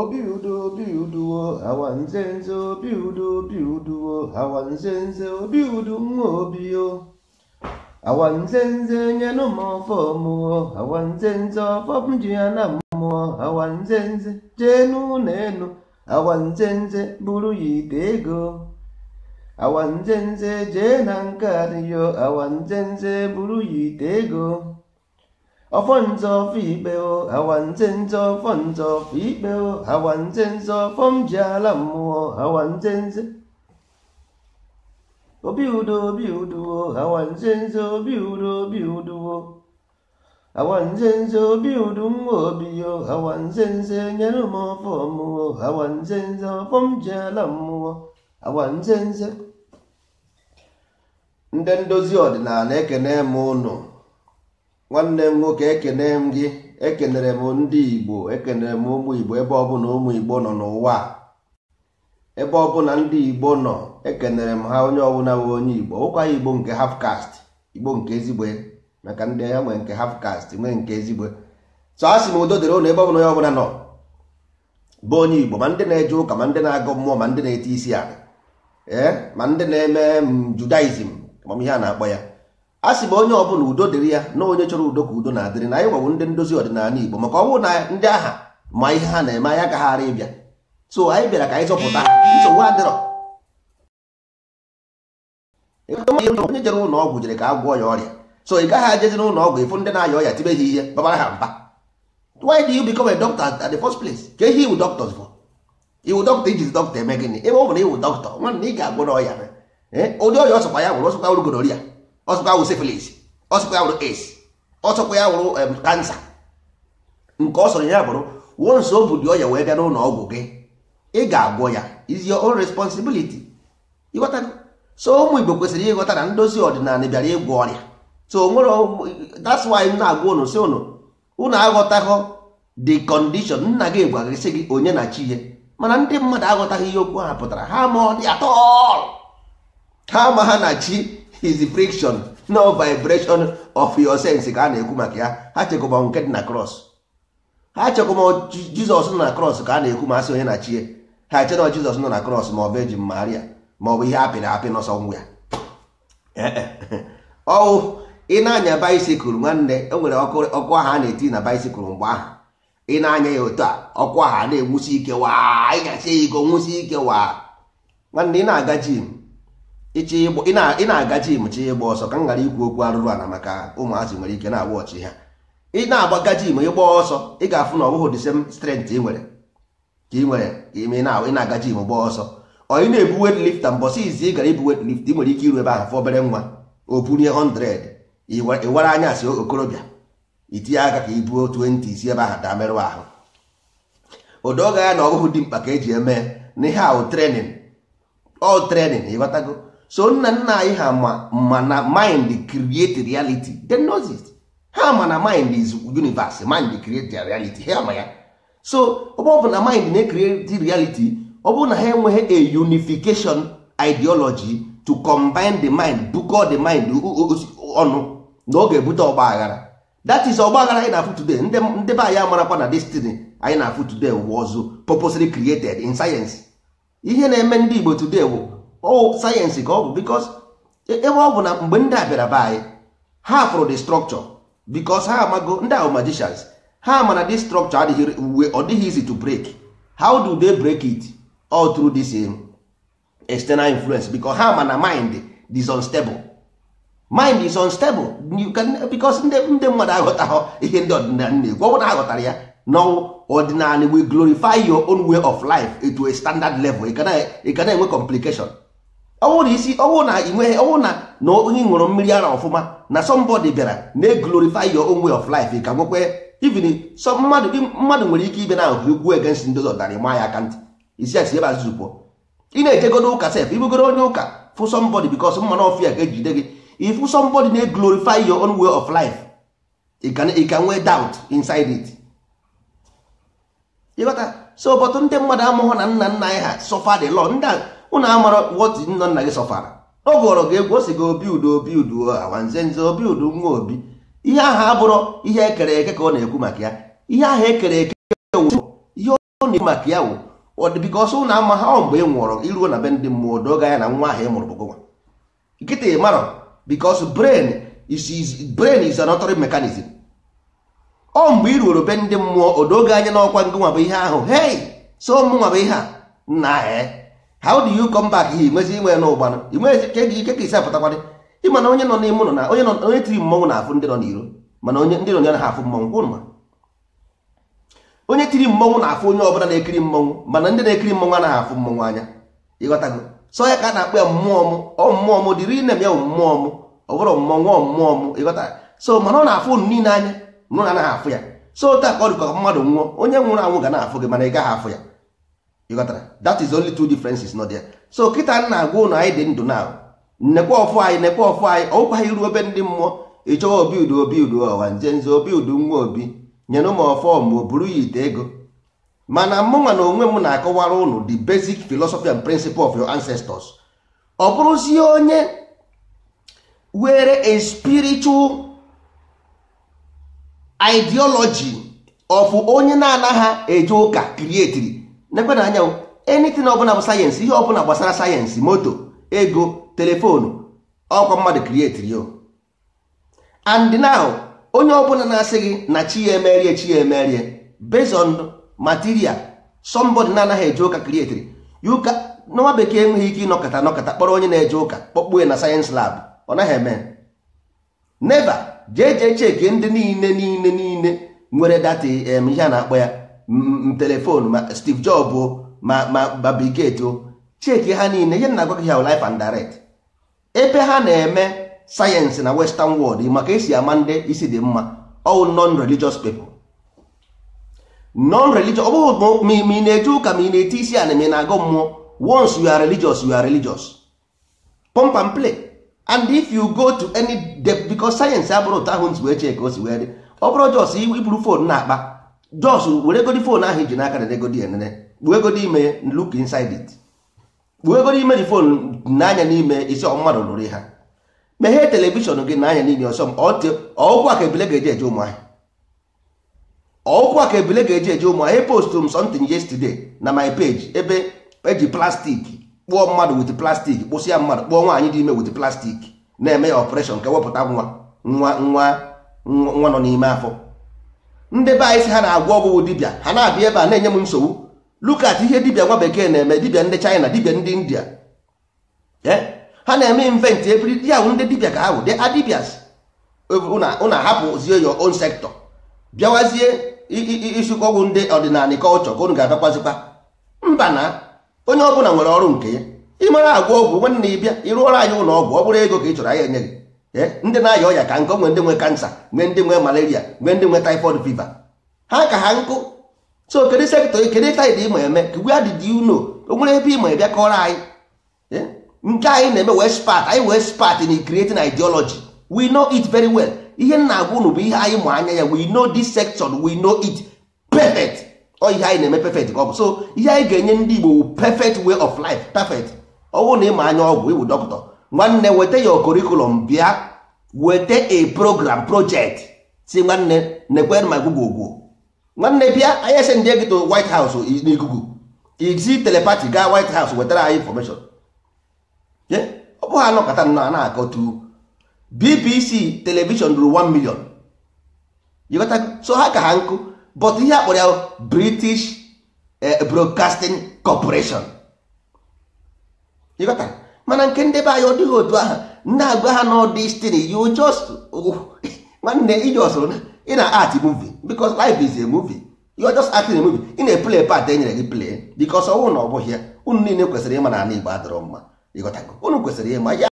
obi udo obi uduo awa nzenze obi udo mo uduo awa nzenze obi udu nwa obio awa ji ya na mmụọ awa nzenze jee n'ụlọ enu awa nzenze bụrụ ya ite ego awa nzenze jee na nke adịyo awa nzenze bụrụ ya ite ego phong cho cho cho cho cho cho hoàn hoàn hoàn hoàn hoàn Afonso Fibeo, Awanzenzo Fonzo Fibeo, Awanzenzo Fomjalamo, Awanzenzo Obiudo Biudo, Awanzenzo Biudo Biudo Awanzenzo Biudum Obio, Awanzenzo Nyanumo Fomuo, Awanzenzo Fomjalamo, Awanzenzo Ndị ndozi ọdịnala ekene m ụnụ nwanne m nwoke ekene m gị ekenere m ndị igbo ekenere m ụmụ igbo ebe ọbụla ụmụ igbo nọ n'ụwa ebe ọbụla ndị igbo nọ ekenere m ha onye ọbụla nwe onye igbo ụkwa igbo nke hafkast igbo nke ezigbo e. maka ndị ya nwere nke hafkast nwee nke ezigbo e. so a sị m udo dịrị ụlọ ebe ọbụla onye ọbụla nọ bụ onye igbo ma ndị na-eje ụka ma ndị na-agụ mmụọ ma ndị na-ete isi ala ee eh, ma ndị na-eme judaism ihe a na-akpọ ya a sị ma onye ọbụla udo dịrị ya na onye chọrọ udo ka udo na-adịrị na anyị gwawo ndị ndozi ọdịnala Igbo maka ọ na ndị agha ma ihe ha na-eme anyị agaghara ịbịa so anyị bịara ka anyị zọpụta nsogbu adịrọ onye jere ụlọ ọgwụ jere ka a gwọọ ya ọrịa so ị gaghị ajezi n'ụlọ ọgwụ ịfụ ndị na-aya ọrịa tibe ha ihe babara ha mba why do you become a doctor at the first place ka ihe iwu doctors for iwu doctor ijizi doctor eme gịnị ebe ọ bụrụ iwu doctor nwanne ị ga-agwọ na eh, ụdị ọya ọsọkwa ya gwụrụ ọsọkwa urugorori ya ọsọkwa wụ syphilis ọsọkwa wụrụ AIDS ọsọkwa ya wụrụ kansa nke ọ sọrọ ya bụrụ nso o dị ọya wee bịa n'ụlọ ọgwụ gị ị ga-agwọ ya is your own responsibility ịghọtago so ụmụ Igbo kwesịrị ịghọta na ndozi ọdịnala bịara ịgwọ ọrịa so nwere that's why m na-agwa ụnụ si ụnụ ụnụ aghọtaghọ the condition nna gị gwara gị gị onye na chi ihe mana ndị mmadụ aghọtaghị ihe okwu ha pụtara ha ma ọ dị atọ ha ma ha na chi his friction no vibration of your sense ka a na-ekwu maka ya ha chekwa nke dị na cross ha chekwa jizọs nọ na cross ka a na-ekwu ma asị onye na chie ha eche jizọs nọ na cross ma ọ bụ eji maria ma ọ bụ ihe apịrị apị n'ọsọ ngwa ya ọwụ ị na-anya baisikụl nwanne e nwere ọkụ aha a na-eti na baisikụl mgbe ahụ ị na-anya ya otu a ọkụ aha na-enwusi ike waa ị ya ike nwusi ike waa nwanne ị na-aga jim ị na-aga jim chi ịgba ọsọ ka m ghara ikwu okwu arụrụ ala maka ụmụazị nwere ike na-agba ọchị ha ị na-agbaga jim ịgba ọsọ ị ga-afụ na ọ bụghị the same ị nwere ka ị nwere ime ị na-aga jim gbaa ọsọ ọ ị na-ebu weight lifta mbọsị izi ị gara ibu weight lift ị nwere ike iru ebe ahụ fọ obere nwa o bunye 100 ịwara anya si okorobịa itinye aka ka ibuo 20 isi ebe ahụ daa merụ ahụ odoga ya na ọ dị mkpa ka eji eme na ihe ahụ trenin ọ trenin ịghọtago so nna nna anyị ha ma na mind create reality they knows ha ma na mind is universe mind create their reality ha ma ya so ọ bụ na mind na-create reality ọ bụrụ na ha enweghị a unification ideology to combine the mind bukọ the mind ọnụ na ọ ga-ebute ọgba aghara that is ọgba aghara anyị na-afụ today ndị be anyị amarakwa na destiny anyị na-afụ today ọzọ purposely created in science ihe na-eme ndị Igbo today ọ sayensị ka ọ bụ because ebe eh, eh, ọ bụ na mgbe ndị a bịara be anyị ha fụrụ the structure because ha amago ndị ahụ magicians ha mana this structure adịghị uwe ọ dịghị easy to break how do they break it all through this eh, external influence because ha mana mind is unstable mind is unstable you can because ndị ndị mmadụ aghọtaghọ ihe ndị ọdịnala na-ekwu ọ bụ na aghọtara ya n'ọnwụ ọdịnala we glorify your own way of life to a standard level ị ka na-enwe complication ọnwụ na isi ọnwụ na ị ọnwụ na na onye ṅụrụ mmiri ara ọfụma na somebody bịara na glorify your own way of life ka nwekwe even so mmadụ mmadụ nwere ike ibe na ahụ ugwu against ndị ọzọ dara ma ya aka ntị isi asi ebe azụzụ pụọ ị na-ejegoro ụka sef ibugoro onye ụka fụ somebody because mmanụ ọfịa ga-ejide gị ịfụ somebody na glorify your own way of life ị ka nwee doubt inside it ịghọta so bọtụ ndị mmadụ amụghọ na nna nna anyị ha sọfa dị lọ ndị ụnụ amara wọtụ nna nna gị sọfara ọ gụọrọ gị egwu o si gị obi udo obi udo awanze nze obi udo nwa obi ihe ahụ abụrụ ihe ekere eke ka ọ na-ekwu maka ya ihe ahụ ekere eke ihe ọ na-ekwu maka ya wụ ọdịbika ọsọ ụnụ ama ha mgbe ị nwụrọ iruo na be ndị mmụọ doga ya na nwa ahụ ịmụrụ mụrụ bụgụwa nkịta ị marọ bikos brain is is mechanism ọ mgbe ị ruoro be ndị mmụọ odoga anya n'ọkwa ngị nwa bụ ihe ahụ hei so mụ bụ ihe a nna how do you come back here nwezi inwe n'ụgbanụ inwezi ka ike ka isi apụtakwadị ịma na onye nọ n'ime ụlọ na onye nọ onye tiri mmọnwụ na-afụ ndị nọ n'iro mana onye ndị nọ n'iro na-afụ mmọnwụ kwụ ma onye tiri mmọnwụ na-afụ onye ọbụla na-ekiri mmọnwụ mana ndị na-ekiri mmọnwụ anaghị afụ mmọnwụ anya ịghọtago sọ ya ka a na-akpọ ya mmụọ m ọ mmụọ m dịrị inem ya mmụọ m ọ bụrụ mmọnwụ mmụọ m ịghọta so mana ọ na-afụ ụnụ niile anya nụ na anaghị afụ ya so taa ka ọ dịkwa mmadụ nwụọ onye nwụrụ anwụ ga na-afụ gị mana ị gaghị afụ ya you got that? is only two differences not there so kịta na-agwa ụnụ anyị dị ndụ na nnekwa ọfụ anyị nnekwa ọfụ anyị ọkwa anyị ruo ebe ndị mmụọ ịchọwa obi udo obi udo ọwa nze nze obi udo nwa obi nyere m ọfọ ma o buru ya ite ego mana mụnwa na onwe m na-akọwara ụnụ the basic philosophy and principle of your ancestors ọ bụrụzie onye were a spiritual ideology of onye na-anaghị eje ụka krietiri nekwe na anya anything ọbụla bụ sayensị ihe ọbụla gbasara sayensị moto ego telefoonu ọkwa mmadụ krietiri yo andinahụ onye ọbụla na-asị gị na chi ya emerie chi ya emerie based on material somebody na-anaghị eje ụka krietiri yuka nwa bekee enweghị ike ịnọkọta anọkọta kpọrọ onye na-eje ụka kpọkpuo na sayensị lab ọ naghị eme neva jee jee cheki ndị niile niile niile nwere data ihe a na-akpọ ya telefon ma Steve Jobs ma ma o Gates cheki ha niile ihe na-agwa gị ha life and direct ebe ha na-eme sayensị na western world maka esi ama ndị isi dị mma all non-religious people non-religious ọ bụghị ma ị na-eje ụka ma ị na-eti isi ana ma ị na-agụ mmụọ once you are religious you are religious pump and play and if you go to any depth because sayensị abụrụ ụtọ ahụ nsi wee chee ka o si wee dị ọ bụrụ jos iburu fon na-akpa jos were egodi fon ahụ ji n'aka na egodi enene kpuo egodi ime look inside it kpuo egodi imeri fon n'anya n'ime isi mmadụ lụrụ ha meghee telivishọn gị n'anya n'ime ọsọ m ka ebile ga-eji eje ụmụ ahịa ka ebile ga-eji eje ụmụ ahịa postụrụ m something na my page ebe eji plastik kpụọ mmadụ wit plastik kpụsịa mmadụ kpụọ nwaanyị dị ime wit plastik na-eme ya ọpụreshọn ka wepụta nwa nwa nwa nwa nọ n'ime afọ ndị be anyị si ha na-agwọ ọgwụgwụ dibịa ha na-abịa ebe a na-enye m nsogbu lukat ihe dibịa nwa bekee na-eme dibịa ndị China dibịa ndị India e? ha na-eme invent ebiri ya ndị dibịa ka ha bụ dị adibias ụna hapụzie your own sector bịawazie ịsụkọ ọgwụ ndị ọdịnala culture ka unu ga-abịakwazikwa mba na onye ọbụla nwere ọrụ nke ya ị mara agwọ ọgwụ nwanne ịbịa ọrụ anyị ụlọ ọgwụ ọ bụrụ ego ka ị chọrọ anyị enye gị Eh? ndị na-aya ọya ka nkụ nwee ndị nwe kansa nwee ndị nwe malaria nwee ndị nwe typhoid fever ha ka ha nkụ so kedu sektọ kedu taid ịma eme where did you know o nwere ebe ịma ebe kọrọ anyị eh? nke anyị na-eme wee spat anyị wee spat in creating ideology we know it very well ihe nna agwa unu bụ ihe anyị mụ anya ya we know this section we know it perfect ọ ihe anyị na-eme perfect ọ bụ so ihe anyị ga-enye ndị Igbo perfect way of life perfect ọ bụrụ na ịma anya ọgwụ ịbụ dọkịta nwanne weta your curriculum bịa weta a program project si nwanne nekwe ma google gwuo nwanne bịa anyị esendie gị to white house n'ikuku iji telepati gaa white house wetara anyị information ọ bụghị anọkọta nnọọ na-akọtu bbc telivishọn ruru 1 million yikọta so ha ka ha nkụ but ihe akpọrọ ya british eh, broadcasting corporation yikọta mana nke ndị be anyị ọ dịghị otu aha ndị agwa ha nọ destiny you just oh, nwanne iji na ị na art movie because life is a movie you are just acting movie ị na-eplay part e nyere gị play because ọnwụ na ọ bụghị ya unu niile kwesịrị ịma na ana igbo adọrọ mma ịghọtago unu kwesịrị ịma ya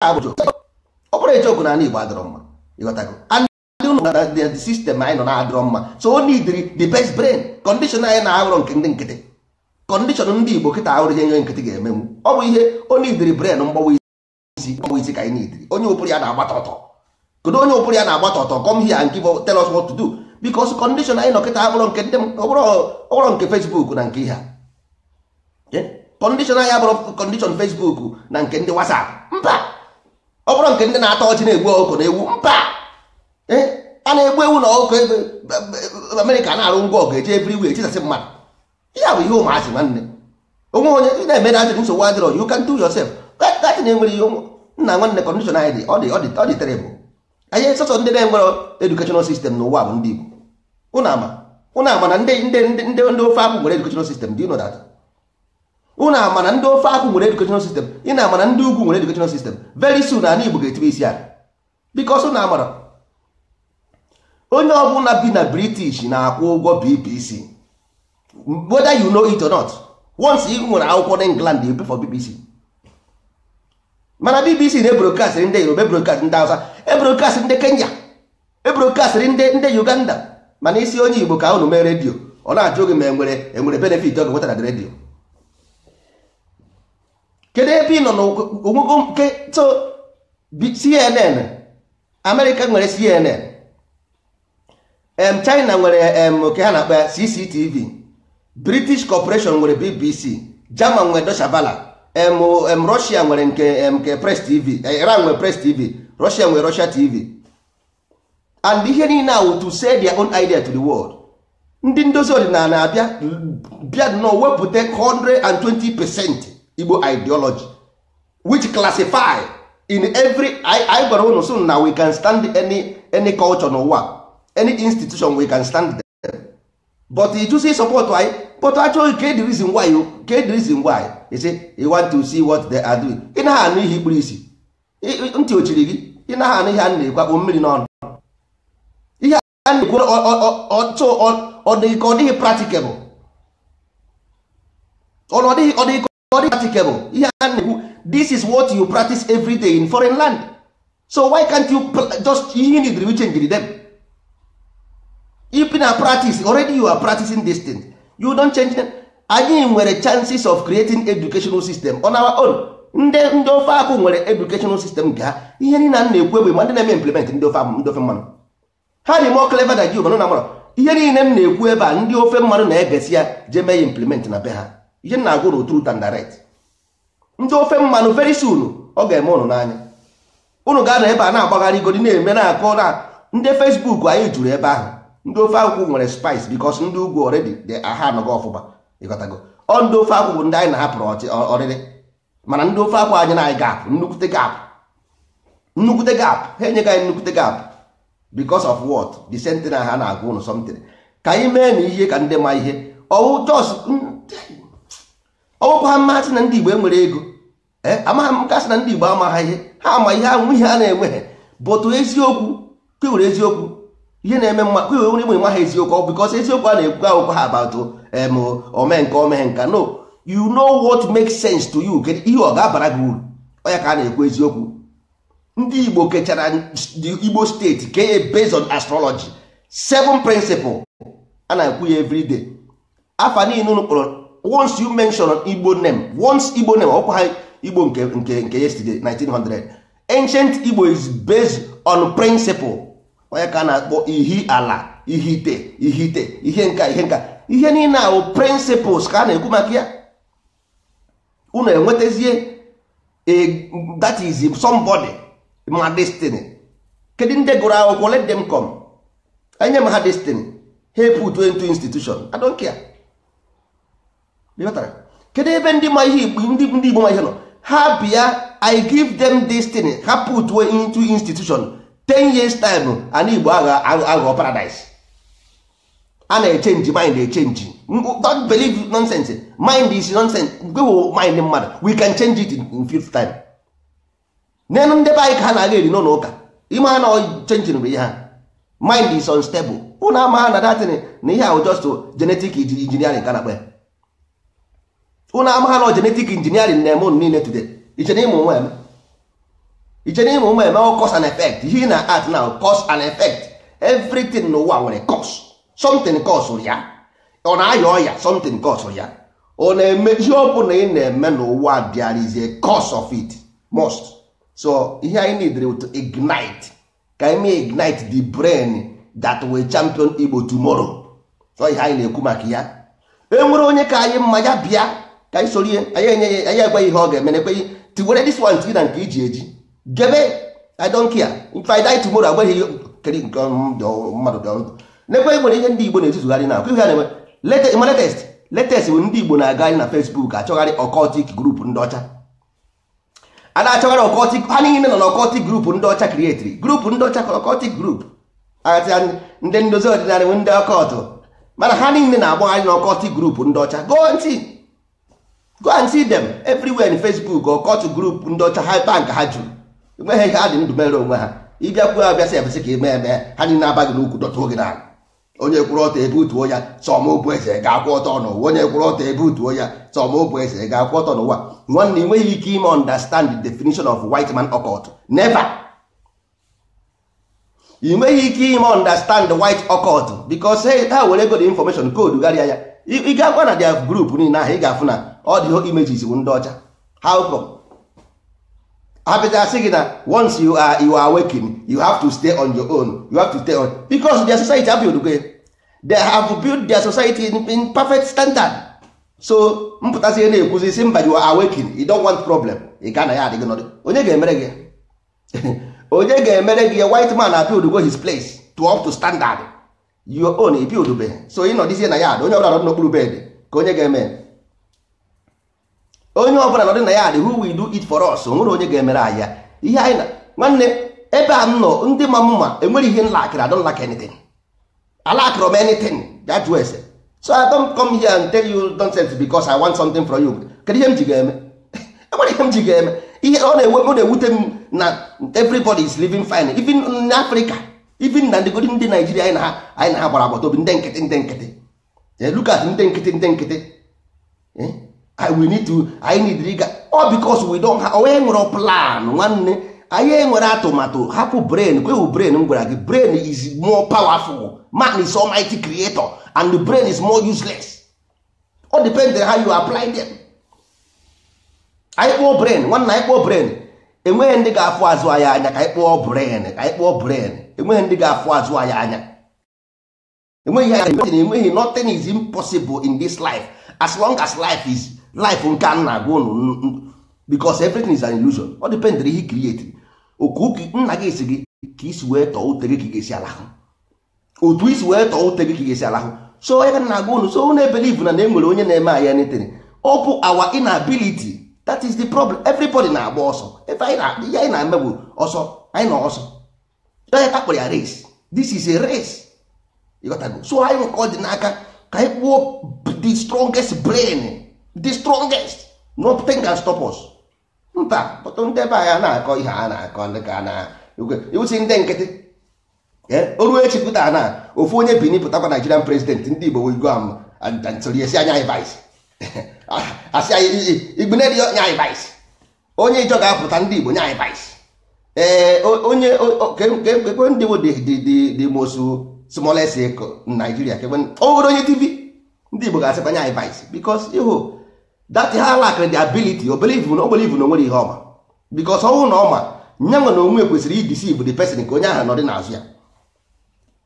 ọ bụrụ ejiokwu na ana igbo adịrọ mma ịghọtago ndị sistem anyị nọ na adọrọ mma so o need the best brain condition anyị na-aghọrọ nke ndị nkịtị kọndishọn ndị igbo kịta ahụrụ ihe nye nkịtị ga-emenwu ọ bụ ihe onye idiri bren mgbawa isi mgbawa isi ka anyị na onye ụpụrụ ya na-agbata ọtọ kedu onye ụpụrụ ya na-agbata ọtọ kọm hịa nke bụ us tell us what to do kọndishọn anyị nọkịta abụrụ nke ndị ọbụrụ nke Facebook na nke ihe kọndishọn anyị abụrụ kọndishọn na nke ndị wasap mba nke ndị na atọ ọchị na-egbu na ewu mba a na-egbu ewu ọkụkọ e, e, e, Amerịka na-arụ ngwa ọgụ ebiri wee chisasị mmadụ ihe bụ ihe ụmụazị nwanne onwe onye ị na-eme na adịrị nsogbu adịrọ you can do yourself gatị na-enwere ihe nna nwanne kọndishọn anyị dị ọ dị ọ dị ọ anyị sọsọ ndị na-enwere edukeshonal sistem n'ụwa bụ ndị Igbo ụnụ ama na ndị ndị ndị ndị ofe akwụ nwere edukeshonal sistem dị ụnụ data ụnụ ama na ndị ofe akwụ nwere edukeshonal sistem ị na-ama na ndị ugwu nwere edukeshonal sistem very soon na ala Igbo ga-etibe isi aka bikos ụnụ amara onye ọbụla bi na British na-akwụ ụgwọ BPC whether you know it or not once ị nwere akwụkwọ na england you for bbc mana bbc na-ebrokast ndị yoruba ebrokast ndị hausa ebrokast ndị kenya ebrokast ndị ndị uganda mana isi onye igbo ka unu mee redio ọ na-achọ oge ma enwere enwere benefit ọ ga na redio kedu ebe ị nọ n'ogwụgwụ nke to cnn amerịka nwere cnn em china nwere em nke ha na-akpa cctv british corporation nwere bbc german nwere doshabala em russia nwere nke nke press tv e, iran nwere press tv russia nwere russia tv and ihe niile ahụ to say their own idea to the world ndị ndozi ọdịnala abịa bịa nọ wepụta 120 percent igbo ideology which classify in every I gwara ụnụ na we can stand any any culture n'ụwa any institution we can stand them. but you say anyị, why but actually get the oh, reason why you get the reason why you say you want to see what they are doing ị naghị anụ ihe ikpuru isi ntị ochiri gị ị naghị anụ ihe a na-ekwakpo mmiri n'ọnụ ihe a na-ekwu ọtụ ọdịghị ka ọ dịghị practicable ọdịghị ọdịghị ka ọ dịghị practicable ihe a na-ekwu this is what you practice every day in foreign land so why can't you just ihe ị nidiri change them if na practice already you are practicing this thing you don change them anyị nwere chances of creating educational system on our own ndị ndị ofe akụ nwere educational system gaa ihe niile na na-ekwu egbe ma ndị na-eme implement ndị ofe ndị ofe mmanụ ha dị more clever than you mana na mara ihe niile m na-ekwu ebe a ndị ofe mmanụ na-egesi ya jee mee ya implement na be ha ihe na agwụrụ na true and direct ndị ofe mmanụ very soon ọ ga-eme ụnụ n'anya ụnụ ga-anọ ebe a na-agbagharị igodi na-eme na-akọ na ndị Facebook anyị juru ebe ahụ ndị ofe akwụkwọ nwere spice because ndị ugwu dị aha anọgo ọfụma ịghọtago ọ ndị ofe akwụkwọ ndị anyị na-ahapụrụ ọrịrị mana ndị ofe akwụkwọ anyị na-anyị gap nnukwute gap nnukwute gap ha enyeghị anyị nnukwute gap because of what the sentinel ha na-agwa ụnụ something ka anyị mee na ihe ka ndị ma ihe ọwụkwa ha mmasị na ndị igbo enwere ego eh, amaghị m kasị na ndị igbo ama ha ihe ha ama ihe anwụ ihe a na-enweghị bụtụ eziokwu kewere eziokwu ihe na-eme mma kwe onye igbe maha eziokwu because eziokwu a na-ekwu akwụkwọ ha about em ome omenka no you know what makes sense to you kedu ihe ọ ga-abara gị uru ọya ka a na-ekwu eziokwu ndị igbo kechara igbo steeti kee based on astrology seven principle a na-ekwu ya every day afa niile unu kpọrọ once you mention igbo name once igbo name ọkwa ha igbo nke nke yesterday 1900 ancient igbo is based on principle onye ka na-akpọ ihi ala ihite ihite ihe nka ihe nka ihe niile ahụ principles ka a na-ekwu maka ya unu enwetazie that is somebody ma destiny kedu ndị gụrụ akwụkwọ let them come enye m ha destiny ha put into institution I don't care kedu ebe ndị ma ihe igbo ndị igbo ma ihe nọ ha bịa I give them destiny ha put into institution ten years time ana igbo aghọ paradise a na-echenji mind echenji don't believe nonsense mind is nonsense gwewo mind mmadụ we can change it in fifth time n'elu ndị be anyị ka ha na-aga eri n'ụlọ ụka ime ha na chenchin bụ ihe ha mind is unstable ụnụ ama ha na datin na ihe ahụ just genetic engineering ka na-akpa ya ụnụ ama ha na genetic engineering na-eme ụnụ niile today iche ịmụ nwa eme iche n'ihe ụmụ eme cause and effect ihe na art now cause and effect everything n'ụwa nwere cause something cause ya ọ na-aya ọya something cause ya ọ na-eme ihe ọ bụla ị na-eme n'ụwa there is a cause of it most so ihe anyị need to ignite ka anyị ignite the brain that will champion Igbo tomorrow so ihe anyị na-ekwu maka ya enwere onye ka anyị mma ya bịa ka anyị sorie anyị enye ya anyị egweghị ihe ọ ga-eme na ekweghị tiwere this one tiwe na nke iji eji gebe i don't care if i die tomorrow agbaghị keri nke mmadụ dị ọndụ n'ekwe nwere ihe ndị igbo na-etuzugharị na ihe na-eme ịma latest bụ ndị igbo na-agagharị na facebook achọgharị ọkọtik grupu ndị ọcha a na-achọgharị ọkọtik ha niile na ọkọtik ndị ọcha krietiri grup ndị ọcha ọkọtik ndị ndozi ọdịnala nwe ndị ọkọtụ mana ha niile na-agbagharị na ọkọtik ndị ọcha go go and see them everywhere in ndị ọcha ha bank ha jụrụ enweghị ihe ha dị ndụ mere onwe ha ịbịakwuo abịasị ebesị ka ime e eme ha na aba gị n'ukwu dọtụo gị n'ala onye kwụrụ ọtọ ebe utuo ya sọma obu eze ga-akwụ ọtọ n'ụwa onye kwụrụ ọtọ ebe utuo ya sọma obu eze ga-akwụ ọtọ n'ụwa nwanne enweghị ike ime understand the definition of white man occult never ị nweghị ike ime understand white occult because ha were ego the information code gharịa ya ị ga-agwa na dia group niile ahụ ị ga-afụ na ọ dị images ndị ọcha how come apịta sị gị na once you are you are waking you have to stay on your own you have to stay on because their society have built okay? they have built their society in, in perfect standard so mpụtasị ihe na-ekwuzi si mba you are awaking you don't want problem ị ga na ya adịghị nọdụ onye ga-emere gị onye ga-emere gị white man abuildgo his place to up to standard your own ebuildbe so ị nọdịzie na ya onye ọbụla nọ n'okpuru bed ka onye ga-eme onye ọbụla nọdụ na ya adị who will do it for us onwere onye ga-emere anyị ya ihe anyị na nwanne ebe a m nọ ndị ma mma enwere ihe nlakịrị adọ lak anything alakịrị m anything that was so i don't come here and tell you nonsense because i want something from you kedu ihe m ji ga-eme enwere ihe m ji ga-eme ihe ọ na na-ewute m na everybody is living fine even in africa even na ndịgodi ndị naijiria anyị na ha anyị na ha gbara agbata obi ndị nkịtị ndị nkịtị look ndị nkịtị ndị nkịtị eh? I will need to I need riga all because we don't have onye oh, nwere plan nwanne anyị enwere atụmatụ hapụ brain kwewu brain m gwara gị brain is more powerful man is almighty creator and the brain is more useless all depends on how you apply them anyị kpọọ brain nwanne anyị kpọọ brain enweghị ndị ga-afụ azụ anyị anya ka anyị kpọọ brain ka anyị kpọọ brain enweghị ndị ga-afụ azụ anyị anya enweghị enweghị nothing is impossible in this life as long as life is life nke a na-agwa ụnụ because everything is an illusion ọ dependere ihe create oku nna gị si gị ka isi wee tọọ ute gị ka ga-esi alahụ otu isi wee tọọ ute gị ka ga-esi alahụ so ya na-agwa ụnụ so ụnụ ebelive na na enwere onye na-eme anyị anything ọ bụ our inability that is the problem everybody na-agba ọsọ ya anyị na-eme bụ ọsọ anyị na ọsọ onye takpụrụ ya race this is a race ịghọtago so anyị nwekọ dị n'aka ka anyị kpụọ the strongest brain the strongest nothing can stop us nta ndị na-akọ ihe a na-akọ ndị ka na iwusi ndị nkịtị oru na ofu onye bini pụtakwa Nigerian president ndị Igbo am anya asị anyị nya onye ijọ ga ndị Igbo nya vice ee onye that ha lack the ability o believe na o na o nwere ihe ọma because ọnwụ na ọma nye nwe na onwe kwesịrị ideceive the person ka onye ahụ nọ dị n'azụ ya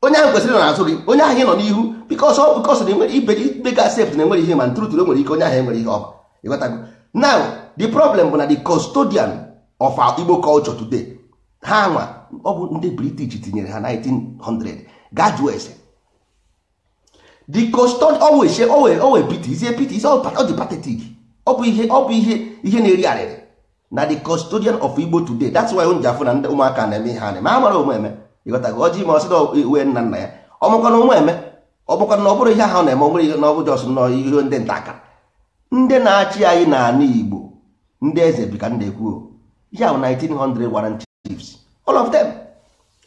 onye ahụ kwesịrị na-azụ gị onye ahụ nọ n'ihu because ọ because na enwere ibe ibe ga na enwere ihe ma ntụrụtụrụ nwere ike onye ahụ enwere ihe ọma ịghọtago now the problem bụ na the custodian of our Igbo culture today ha nwa ọ bụ ndị British tinyere ha 1900 gaa jụọ the coston always say always always pity is pt is all the pathetic ọ bụ ihe ọ bụ ihe ihe na-eri arịrị na the custodian of Igbo today that's why onye afụ na ndị ụmụaka na-eme ihe anyị ma ụmụ eme. ịghọta gị ọjị ma ọsị uwe e, nna nna ya ọmụkwana omeme ọmụkwana na ọ bụrụ ihe ahụ na-eme ọ bụrụ ihe na ọ bụ jọs nọ ihe ndị nta aka ndị na-achị anyị n'ala Igbo ndị eze bi ka m na-ekwu ihe ahụ 1900 warrant chiefs all of them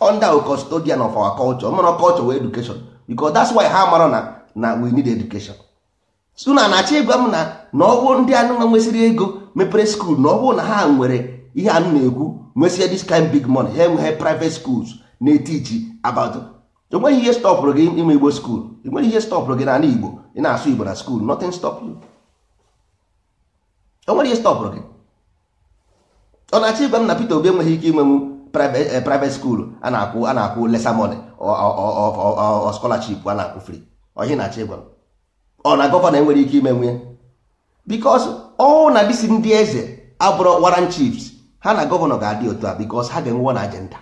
under a custodian of our culture mana culture wa education because that's why ha mara na na we need education so na na-achọ ịgwa m na na ọwụ ndị anụnwa nwesịrị ego mepere skuul na ọwụ na ha nwere ihe anụ na-ekwu nwesịa this kind big money ha enweghị private schools na-etiji about enweghị ihe stọpụrụ gị ime igbo skuul enweghị ihe stọpụrụ gị n'ala igbo ị na-asụ igbo na skuul nothing stop you enwere ihe stọpụrụ gị ọ na-achọ ịgwa m na Peter Obi enweghị ike inwenwu Eh, private school a na-akwụ a na-akwụ lesa money or scholarship a na-akwụ free na-achọ ọ na gọvanọ enwere ike ime nwunye because ọ na disi ndị eze abụrụ waran chiefs ha na gọvanọ ga-adị otu a because ha ga-enwe na agenda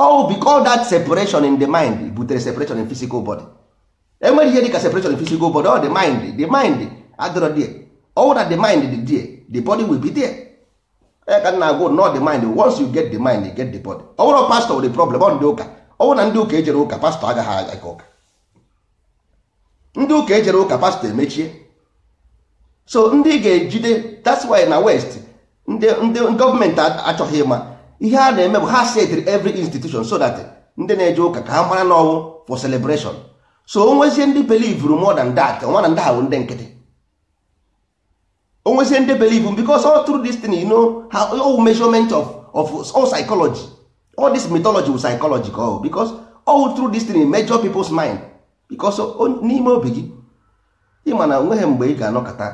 oh because that separation in the mind butere separation in physical body enwere ihe dịka separation in physical body ọ the mind the mind adịrọ die ọ na the mind dị die the body will be there onye ka na agwụ not d mind once you get the mind get the body ọ bụrụ pastọ the problem ọ ndị ụka ọ bụrụ na ndị ụka ejere ụka pastọ agaghị aga ụka ndị ụka ejere ụka pastọ emechie so ndị ga-ejide that's why na west ndị gọọmenti achọghị ịma ihe a na-eme bụ ha setịrị every institution so that ndị na-eje ụka ka ha mara n'ọnwụ for celebration so o nwezie ndị believe more than that nwa na ndị ha bụ ndị nkịtị onwezie ndị believe because all through this thing you know how all measurement of of all psychology all this mythology with psychology ka because all through this thing measure people's mind because n'ime obi gị ịma na onweghị mgbe ị ga-anọkọta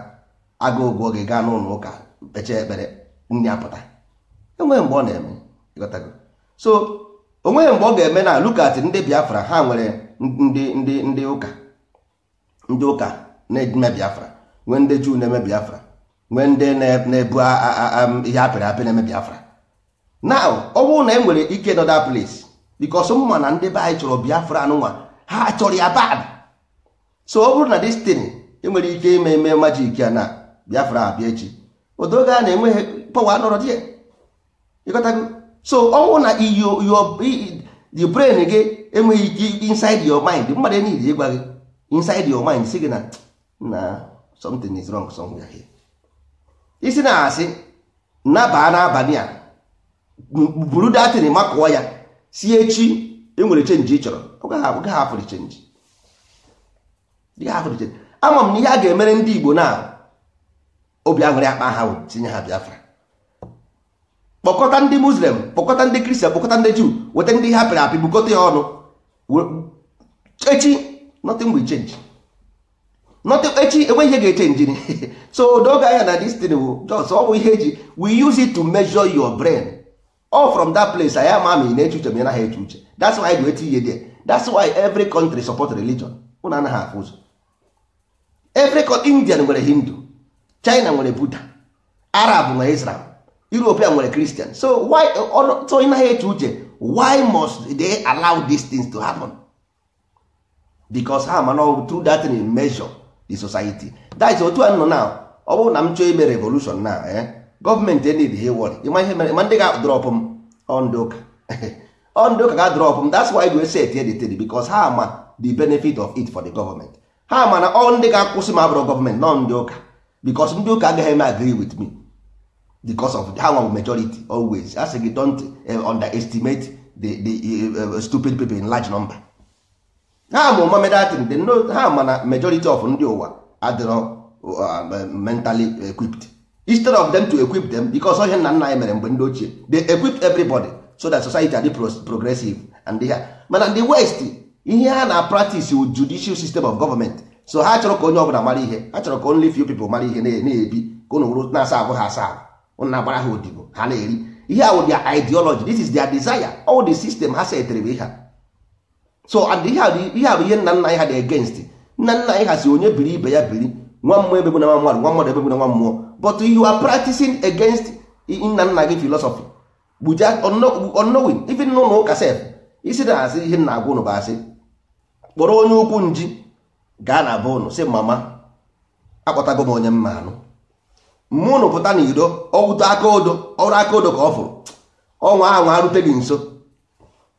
agụgụ oge gaa n'ụlọ ụka kpechee ekpere nri apụta enweghị mgbe ọ na-eme so onweghị mgbe ọ ga-eme na lukat ndị biafra ha nwere nde nde ndị ụka ndị ụka na-eme biafra nwee ndị juu na-eme biafra nwee ndị na-ebu ihe apịrị apị na-eme biafra na ọ bụrụ na e nwere ike nọda place because mma na ndị be anyị chọrọ biafra nwa ha chọrọ ya bad so ọ bụrụ na destin enwere ike ime eme majik ya na biafra abịa echi odoga a na-enweghị pọwa nọrọ di ya so ọnwụ na the brain gị enweghị ike inside your mind mmadụ enyi ịgwa gị inside your mind si gị na na something is wrong somewhere here isi na-asị nabaa n'abalị a buru datin makụọ ya si echi enwere chenji ị chọrọ ama m na ihe a ga-emere ndị Igbo na obi aṅụrị akpa ha tinye ha Biafra kpọkọta ndị Muslim kpọkọta ndị Kristian kpọkọta ndị Juu weta ndị ha pịrị apị bukọta ya ọnụ echi nothing chenji echi enwe ihe ga-eche njin so doge anya na destin bụ oh, just ọ bụ ihe eji we use it to measure your brain all from that place anyị ama ma ị na-eche uche ma ị uche that's why we eti there that's why every country support religion ụna anaghị afụ ụzọ every indian nwere hindu china nwere buddha arab nwere israel european nwere christian so why so ị naghị eche uche why must they allow these things to happen? because ha mana through that measure the society that is otu a nọ now ọ bụrụ na m chọọ ime revolution na eh, gọọmenti enid he wọrị ịma ihe mere ma ndị on m ọndị ụka ọndị ụka ga-adrọp m that's why we set here the table because ha ma the benefit of it for the government ha ma na ọ ndị ga-akwụsị m abụrụ gọọmenti nọ ndị ụka because ndị ụka agaghị agree with me because of ha nwa majority always asị gị don't eh, underestimate the, the uh, stupid people in large number ha ma mamedatin dị nnọọ ha mana majority of ndị ụwa adịrọ uh, mentally equipped instead of them to equip them because ihe nna nna anyị mere mgbe ndị ochie they equip everybody so that society adị progressive and ha mana the west ihe ha na practice judicial system of government so ha chọrọ ka onye ọbụla mara ihe ha chọrọ ka only few people mara ihe na-ebi ka ụnụ wụrụ na-asa abu ha asa ahụ na agbara ha odibo ha na-eri ihe awụ their ideology this is their desire all the system ha setịrị bụ ihe a so ihe bụ ihe nna nna anyị ha dị against nna nna anyị ha si onye biri ibe ya biri nwa mmụọ ebe na nwa mmadụ nwa mmadụ ebe na nwa mmụọ but you are practicing against nna nna gị philosophy buja unknowing even n'ụlọ ụka sef isi na asị ihe nna agwa ụnụ bụ asị kpọrọ onye ukwu nji gaa na be ụnụ si mama akpọtago m onye mma anụ mmụọ ụnụ pụta na iro ọwụta aka odo ọrụ aka odo ka ọ fụrụ ọnwa ahụ arute gị nso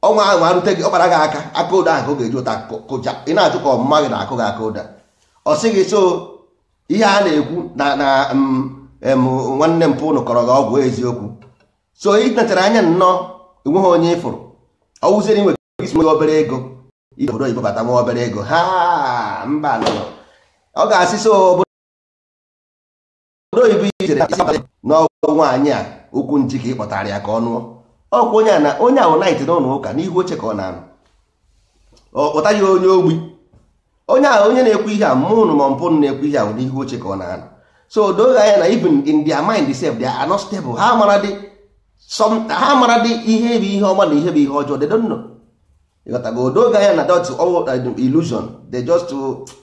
ọnwa ahụ arute gị ọkpara gị aka aka ụda ahụ ga-eji ụta kụja ị na-achụ ka ọmụma gị na-akụ gị aka ụda ọ sị gị so ihe a na-ekwu na na nwanne m pụnụ kọrọ gị ọgwụ eziokwu so ị nachara anya nnọọ enweghị onye ịfụrụ ọwụziere nwe gị obere ego ije obodo oyibo bata nwa obere ego ha mba nọ ọ ga-asị so obodo oyibo ijere n'ọgwụ nwaanyị a okwu nji ịkpọtara ya ka ọ nụọ ọkwa onye na onye ahụ naịtị n'ụlọ ụka n'ihu oche ka ọ na onye ogbi onye ahụ onye na-ekwu ihe a mụnụ ụnụ ma mpụ na-ekwu ihe ahụ n'ihu oche ka ọ na anụ so doge anya na even in their mind self they ha not stable ha mara dị ihe bụ ihe ọma na ihe bụ ihe ọjọọ they ịghọtago odoge anya na dot all illusion just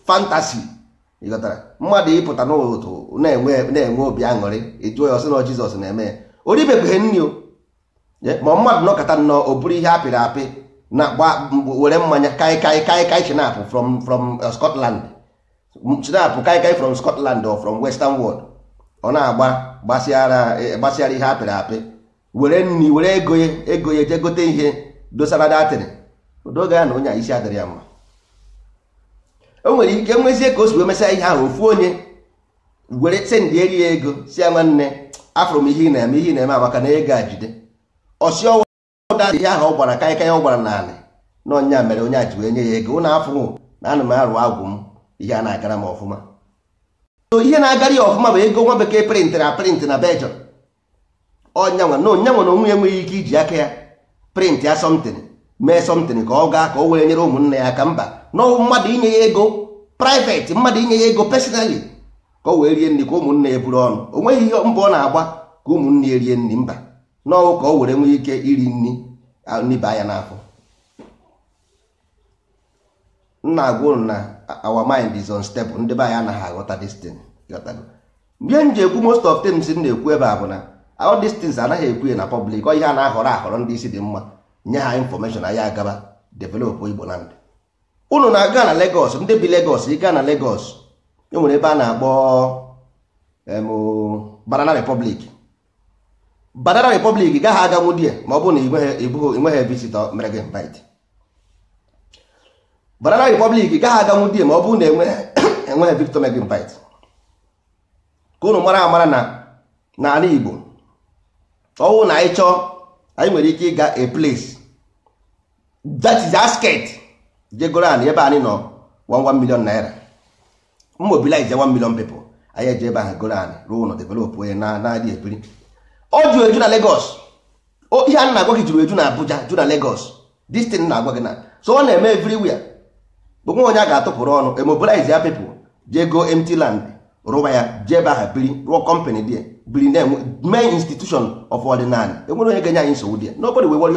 fantasy ịghọtara mmadụ ịpụta na na-enwe obi aṅụrị ịjụọ ya na eme ya ma mmadụ nọkọta nnọọ o bụrụ ihe apịrị apị na gba were mmanya kaikai kaikai chinapụ from from uh, Scotland chinapụ kaikai from Scotland or from Western world ọ na-agba gbasịara e, ihe apịrị apị were nri were ego ya ego ya jee gote ihe dosara datịrị odoge ya na onye a isi adịrị ya mma o nwere ike e nwezie ka o si ihe ahụ ofu onye were sendị eri ya ego si ya nwanne afọrọ m ihe ị na-eme ihe ị na-eme amaka na ego a jide ọsịọwa ụdadị ya ahụ ọ gwara kaịkaị ọ gwara naanị na ọnya mere onye a ji wee nye ya ego na afụnwụ na ana m arụ agwụ m ihe a na-agara m ọfụma so ihe na-agara ya ọfụma bụ ego nwa bekee prịntịrị aprịntị na bejọ ọnyanwa na onye nwere onwe enweghị ike iji aka ya prịntị ya mee sọmtịn ka ọ gaa ka o were nyere ụmụnne ya aka mba na mmadụ inye ya ego praịvetị mmadụ inye ya ego pesinali ka o wee rie nri ka ụmụnne ya buru ọnụ o nweghị ihe mbụ ọ na-agba ka ụmụnne ya rie nri mba n'ọwụ ka o were nwee ike iri nri nniba anya n'afọ nna agwụ ụnụ na our mind is unstable ndị be anyị anaghị aghọta destin ihe m ji ekwu most of things m na-ekwu ebe a bụ na all these anaghị ekwu ya na public ọ ihe a na-ahọrọ ahọrọ ndị isi dị mma nye ha infọmeshọn anyị agaba develop igbo land unu na-aga na Lagos ndị bi Lagos ịga na Lagos enwere ebe a na-akpọ Banana Republic banana republic gaghị aganwu di ma ọ bụ na ịnweghị visitọ mere gị invite banana republic gaghị aganwu di ma ọ bụ na enweghị visitọ mere gị invite ka unu mara amara na n'ala igbo ọwụ na anyị chọọ anyị nwere ike ịga a place that is asket jegoro anyị ebe anyị nọ 1 million naira mobilize 1 million people anyị eje ebe ahụ goro anyị ruo ụlọ develop onye na-adị ebiri ọ jụrụ eju na Legos ihe a na-agwa gị jụrụ eju na Abuja ju na Legos this na-agwa gị na so ọ na-eme everywhere onwe onye a ga-atụpụrụ ọnụ emobilize ya people jee go empty land rụwa ya jee ebe aha biri rụọ company dị biri na mee institution of ordinary enwere onye ga-enye anyị nsogbu dị nobody will worry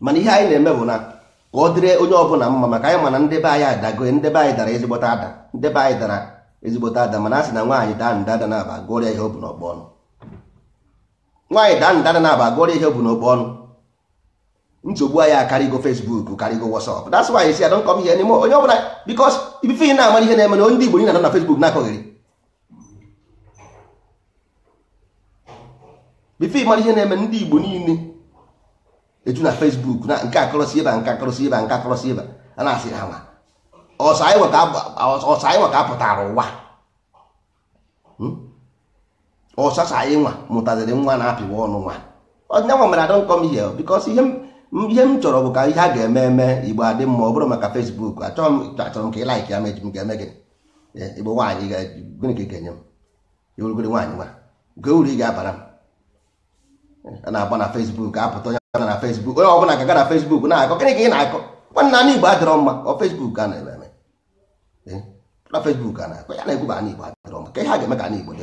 mana ihe anyị na-eme bụ na ka ọ dịrị onye ọbụla mma maka anyị mana ndebe anyị adago ndebe anyị dara ezigbota ada ndebe anyị dara ezigbota ada mana a sị na nwaanyị daa ndada na aba gụọrịa ihe ọ bụ n'ọgbọ ọnụ nwaanyị daa ndana na-aba agụọrọ ihe bụ n'okpu ọnụ nsogbu anyị akarịgo Facebook karịgo WhatsApp that's why isi adon come here anymore onye ọbụla because ibife ị na-amara ihe na-eme na ndị Igbo na-anọ na Facebook na-akọghịrị bife ị mara ihe na-eme ndị Igbo niile eju na Facebook na nke akọrọsi ịba nke akọrọsi ịba nke akọrọsi ịba a na-asị ha nwa ọsọ anyị nwa ka apụtara ụwa hmm? ọsasa anyị nwa mụtaziri nwa na-apịwa ọnụ nwa ọnyanwa mere adọ m ihe bikos ihe m eh, chọrọ bụ eh, ka ihe a ga-eme eme igbo adị mma ọ bụrụ maka fesbuk achọrọ m achọrọ m ka ị ya ga-eme gị igbo nwaanyị gịnị ka ị ga-enye m ewurugoro nwaanyị nwa uru ị ga-abara m a na-agba na fesbuk apụta onye na fesbuk ga-aga na fesbuk na ị na-akọ nwanne mma ọ fesbuk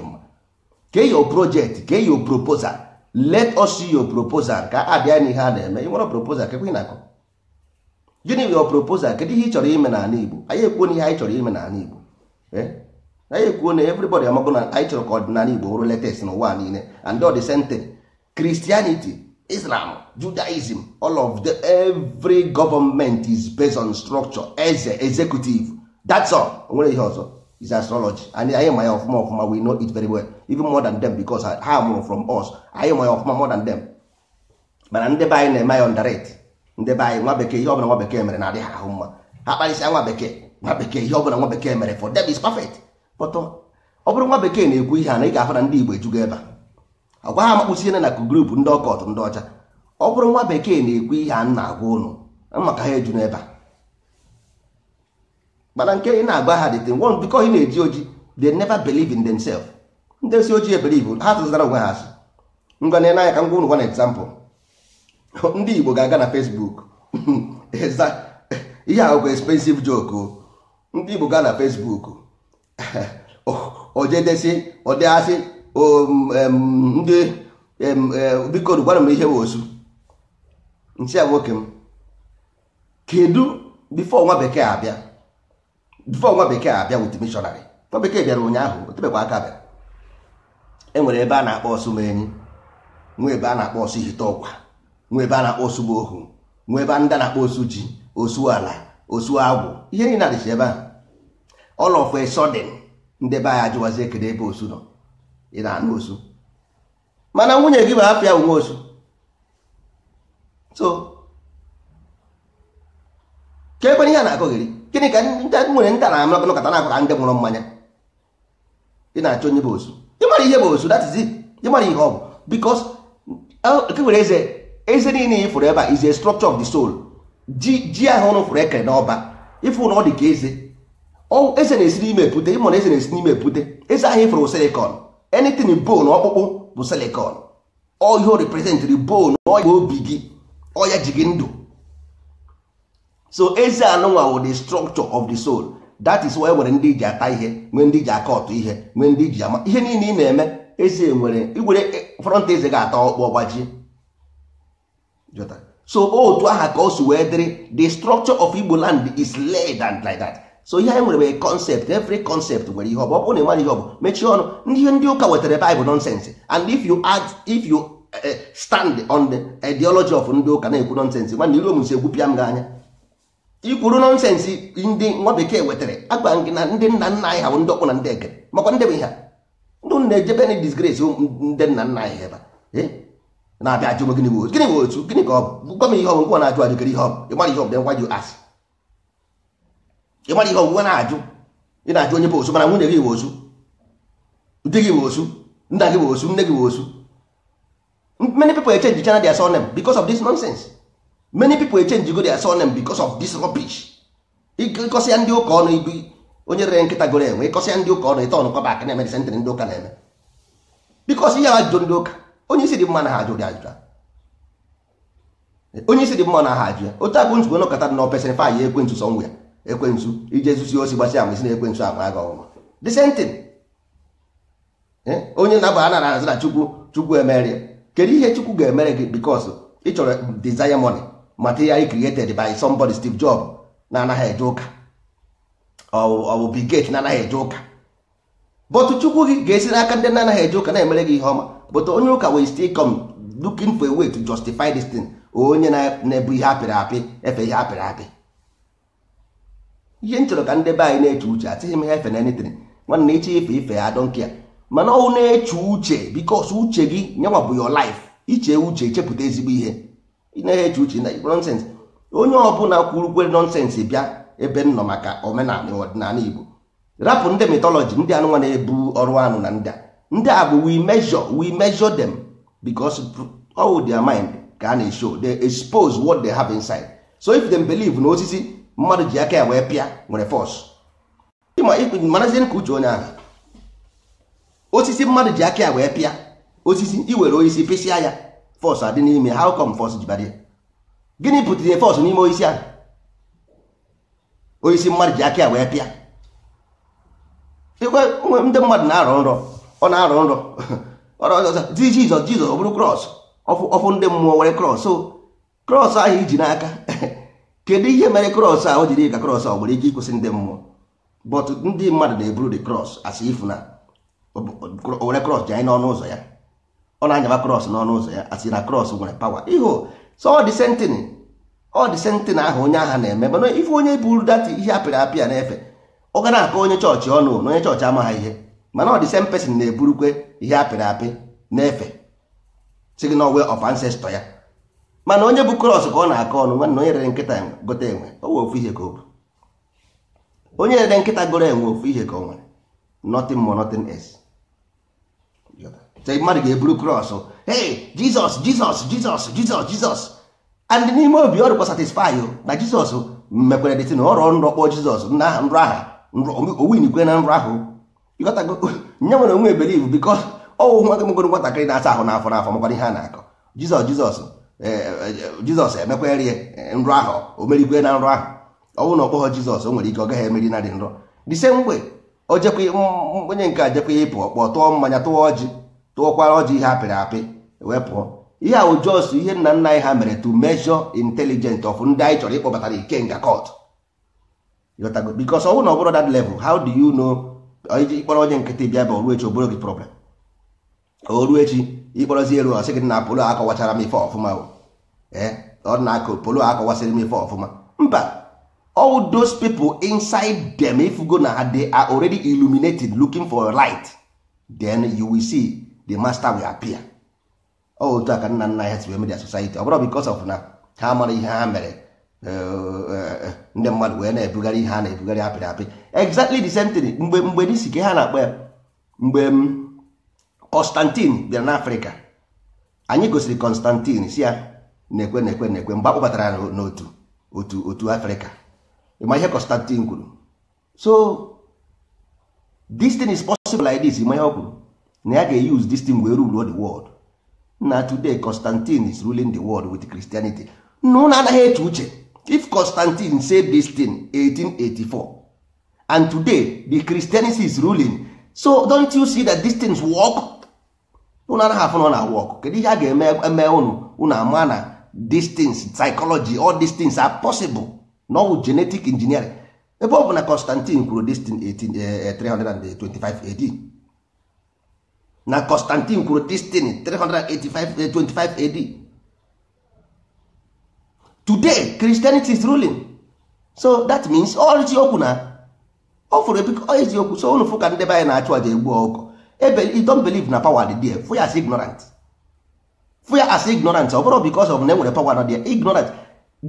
mma kee your project kee your proposal let us see your proposal ka a bịa n'ihe a na-eme ị nwere proposal na-akụ. gịnị your proposal kedu ihe ị chọrọ ime na-ala Igbo anyị ekwuo na ihe anyị chọrọ ime na-ala Igbo eh? anyị ekwuo na everybody amago na anyị chọrọ ka ọdịnala Igbo bụrụ latest n'ụwa niile and all the same Christianity Islam Judaism all of the every government is based on structure eze executive that's all nwere ihe ọzọ is astrology and anyị ma ya ọfụma ọfụma we know it very well even more than them because ha mụrụ from us anyị ma ya ọfụma more than them mana ndị be anyị na-eme ya underrate ndị be anyị nwa bekee ihe ọbụla nwa bekee mere na-adị ahụ mma ha kparịsịa nwa bekee nwa bekee ihe ọbụla nwa bekee mere for them is perfect but ọ uh, bụrụ nwa bekee na-ekwu ihe a na ị ga-ahụ na ndị Igbo ejugo ebe a agwa ha makpụsiene na group ndị ọkọt ndị ọcha ọ bụrụ nwa bekee na-ekwu ihe a na-agwa ụnụ maka ha eju ebe a mana nke ị na-agba ha dị tin one because ị na-eji oji they never believe in themselves ndị si ojii ebelive ha tụzara onwe ha asị ngwa na anya ka ngwa ụnụ gwa na example ndị Igbo ga-aga na Facebook ihe ahụ bụ expensive joke o ndị Igbo ga na Facebook ojedesi ọdịasị ndị e, biko gwara m ihe bụ osu nchi a nwoke m kedu bifo nwa bekee abịa before nwa bekee abịa wuti missionary nwa bekee bịara ụnyaahụ otebekwa aka bịara enwere ebe a na-akpọ ọsụ ma enyi ebe a na-akpọ ọsụ ihite ọkwa nwa ebe a na-akpọ ọsụ ma ohu nwee ebe ndị na-akpọ osu ji osu ala osu agwụ ihe niile adịcha ebe ahụ all of a ndị be anyị ajụwazi ekele ebe osu nọ ị na-anụ osu mana nwunye gị bụ afịa onwe osu so ka ekwere ihe a na-akọgheri gịnị ka nwere nta na amalakụ nkata na-akụ ka ndị nwụrụ mmanya ị na-achọ onye bụ ozu ịmara ihe bụ ozu that is it ịmara ihe ọ bụ because nke nwere eze eze niile ifụrụ ebe a is a structure of the soul ji ji ahụ ụnụ fụrụ ekere n'ọba ịfụ na ọ dị ka eze eze na-esi n'ime epute ịmụ na eze na-esi n'ime epute eze ahụ ịfụrụ silicon anything bone ọkpụkpụ bụ silicon ọ ihe represent bone ọya obi gị ọya ji gị ndụ so eze anụnwa wụ the structure of the soul that is why e nwere ndị ji ata ihe nwee ndị ji aka ọtụ ihe nwee ndị ji ama ihe niile ị na-eme eze nwere igwere e, front eze ga-ata ọkpọ gbajie so otu aha ka o si wee dịrị the structure of Igbo land is laid and like that so ihe anyị nwere bụ concept every concept nwere ihe ọ bụ ọ bụrụ na ị ihe ọ bụ mechie ọnụ ndị ndị ụka wetara Bible nonsense and if you add if you eh, stand on the ideology of ndị ụka na-ekwu nonsense nwanne iru omusi egwupịa m gị anya ikwuru nọnsensị ndị nwa bekee wetara agwa gị na ndị nna nna anyị ha bụ ndị ọkpụ na ndị ege, makwa ndị bụ ihe ndị na-ejebe na disgrace ndị nna nna anyị ebe na-abịa ajụ gịnị bụ gịnị bụ otu gịnị ka ọ bụ gwa m ihe ọgwụgwọ na-ajụ ajụ gịrị ihe ihe ihe na-ajụ ị na bụ osu mana nwunye gị bụ osu di gị bụ osu nna gị bụ osu nne bụ osu many people change go their surname because of this rubbish ịkọsị ya ndị ụka ọnụ ibu onye rere nkịta goro enwe ịkọsị ya ndị ụka ọnụ ịta ọnụkọba aka na-eme na-eme bikos ihe ndị onye isi dị mma na ha ajụrụ ajụjụ onye isi dị mma na ha ajụ ya otu agụ nsogbu nọkọta na fa ya ekwentụ sọ ya ekwentụ osi ama isi na aga ọnwa eh, onye na-aba a chukwu chukwu emere kedu ihe chukwu ga-emere gị bikos ịchọrọ desire money material created by somebody Steve Jobs na anaghị eje ụka ọ bụ na anaghị eje ụka but chukwu gị ga-esi n'aka ndị na-anaghị eje ụka na-emere gị ihe ọma but onye ụka will still come looking for a way to justify this thing onye na-ebu ihe apịrị apị efe ihe apịrị apị ihe m chọrọ ka ndị be anyị na-eche uche atịghị m ha efe na anything nwanne iche ife ife ya don't ya mana ọnwụ na-eche uche bikos uche gị nyanwa bụ yo lif iche uche chepụta ezigbo ihe ị na-eche uche na igbo onye ọbụla kwurukwe nọnsensị bịa ebe nnọ maka omenala ọdịnala igbo rapụ ndị mitọlọji ndị anụnwa na-ebu ọrụ anụ na ndị a ndị a bụ we measure dem measure them all mind ka a na-eshow they expose what they have inside so if them believe na osisi mmadụ ji aka ya wee pịa nwere marazie ka uche onye ahụ osisi mmadụ ji aka ya wee pịa osisi iwere osisi pịsịa ya fọs adị n'ime how come fọs jibadị gịnị pụtara ihe fọs n'ime oisi ahụ oisi mmadụ ji aka ya wee pịa ikwe ndị mmadụ na-arọ nrọ ọ na-arọ nrọ di jizọs ọ bụrụ krọs ọfụ ndị mmụọ were krọs krọs ahụ iji n'aka kedu ihe mere krọs ahụ jiri ka krọs ọ nwere ike ịkwụsị ndị mmụọ but ndị mmadụ na-eburu the krọs asị ifu na were krọs ji anyị n'ọnụ ụzọ ya ọ na-anyaba krọs n'ọnụ ụzọ ya asị na krọs nwere pawa ihu so ọ dị sentin ọ dị sentin ahụ onye agha na-eme mana ife onye buru data ihe apịrị apịa na-efe ọ gara akọ onye chọọchị ọnụ na onye chọọchị amaghị ihe mana ọ dị sen pesin na-eburukwe ihe apịrị apị na-efe si gị na ọwe of ya mana onye bụ krọs ka ọ na-akọ ọnụ nwanna onye rere nkịta gote enwe o ofu ihe ka ọ bụ onye rere nkịta goro enwe ofu ihe ka o nwere nothing mmadụ ga-eburu krọs ee jizọs jizọs jizọs jizọs jizọs and n'ime obi ọrụkwa rụkwa satisfy na jizọs mekwere dịtị na ọrọ nrọ kpọọ jizọs nrọ aha owinikwe na nrọ ahụ ịghọtago nye nwere onwe ebeliv bikọ ọwụ nwa gịmgoro nwatakịrị na-asa ahụ n'afọ n'afọ makwara ihe a na-akọ jizọs jizọs eh, eh, jizọs emekwerie eh, nrọ ahụ o merigwe na nrọ ahụ ọwụ na ọkpọghọ jizọs o nwere ike ọ gaghị emeri na dị nrọ the same way onye nke a ịpụ ọkpọ tụọ mmanya tụọ ọjị tụọkwara ọjị ihe apịrị apị wee pụọ ihe a ojos ihe nna nna anyị ha mere to measure intelligence of ndị anyị chọrọ ịkpọbatara ikenga court bikos ọ bụrụ na ọ that level how do you know iji ịkpọrọ onye nkịtị bịa bụ oruechi echi oboro gị problem oru echi ịkpọrọzi eru ọ sị gị na polo akọwachara m ife ọfụma eh, ọ na akọ polo akọwasịrị m ife ọfụma mba all those people inside them if you go na they are already illuminated looking for light then you will see the master will appear otu oh, a ka nna nna ha si media society ọ bụrụ because of na ha mara ihe ha mere eh, eh, eh, ndị mmadụ wee na-ebugharị ihe a na-ebugharị apịrị apị exactly the same thing mgbe mgbe n'isi ka ha na-akpọ ya mgbe mm, Constantine bịara n'Africa anyị gosiri Constantine si ya na-ekwe na-ekwe na-ekwe mgbe akpọbatara n'otu otu otu Afrịka ịma ihe Constantine kwuru so this thing is possible like this ịma ihe ọ na ya ga-use this thing wee rule the world na today constantine is ruling the world with christianity na ụlọ anaghị eche uche if constantine said this thing 1884 and today the christianity is ruling so don't you see that these things work ụlọ anaghị afụ nọ na work kedu ihe a ga-eme unu unu ama na these things psychology all these things are possible No genetic engineering ebe ọ bụ na constantine kwuru this thing eh, eh, 325 AD na constantine kwuru destin 385 ad today christianity is ruling so that means all oh, na ọ fụrụ ebikọ so unu fụ ka ndị be anyị na-achụ aja egbu ọkụ don't believe na power dị there fụ as ignorant fụ as ignorant ọ bụrụ because of na enwere power na there ignorant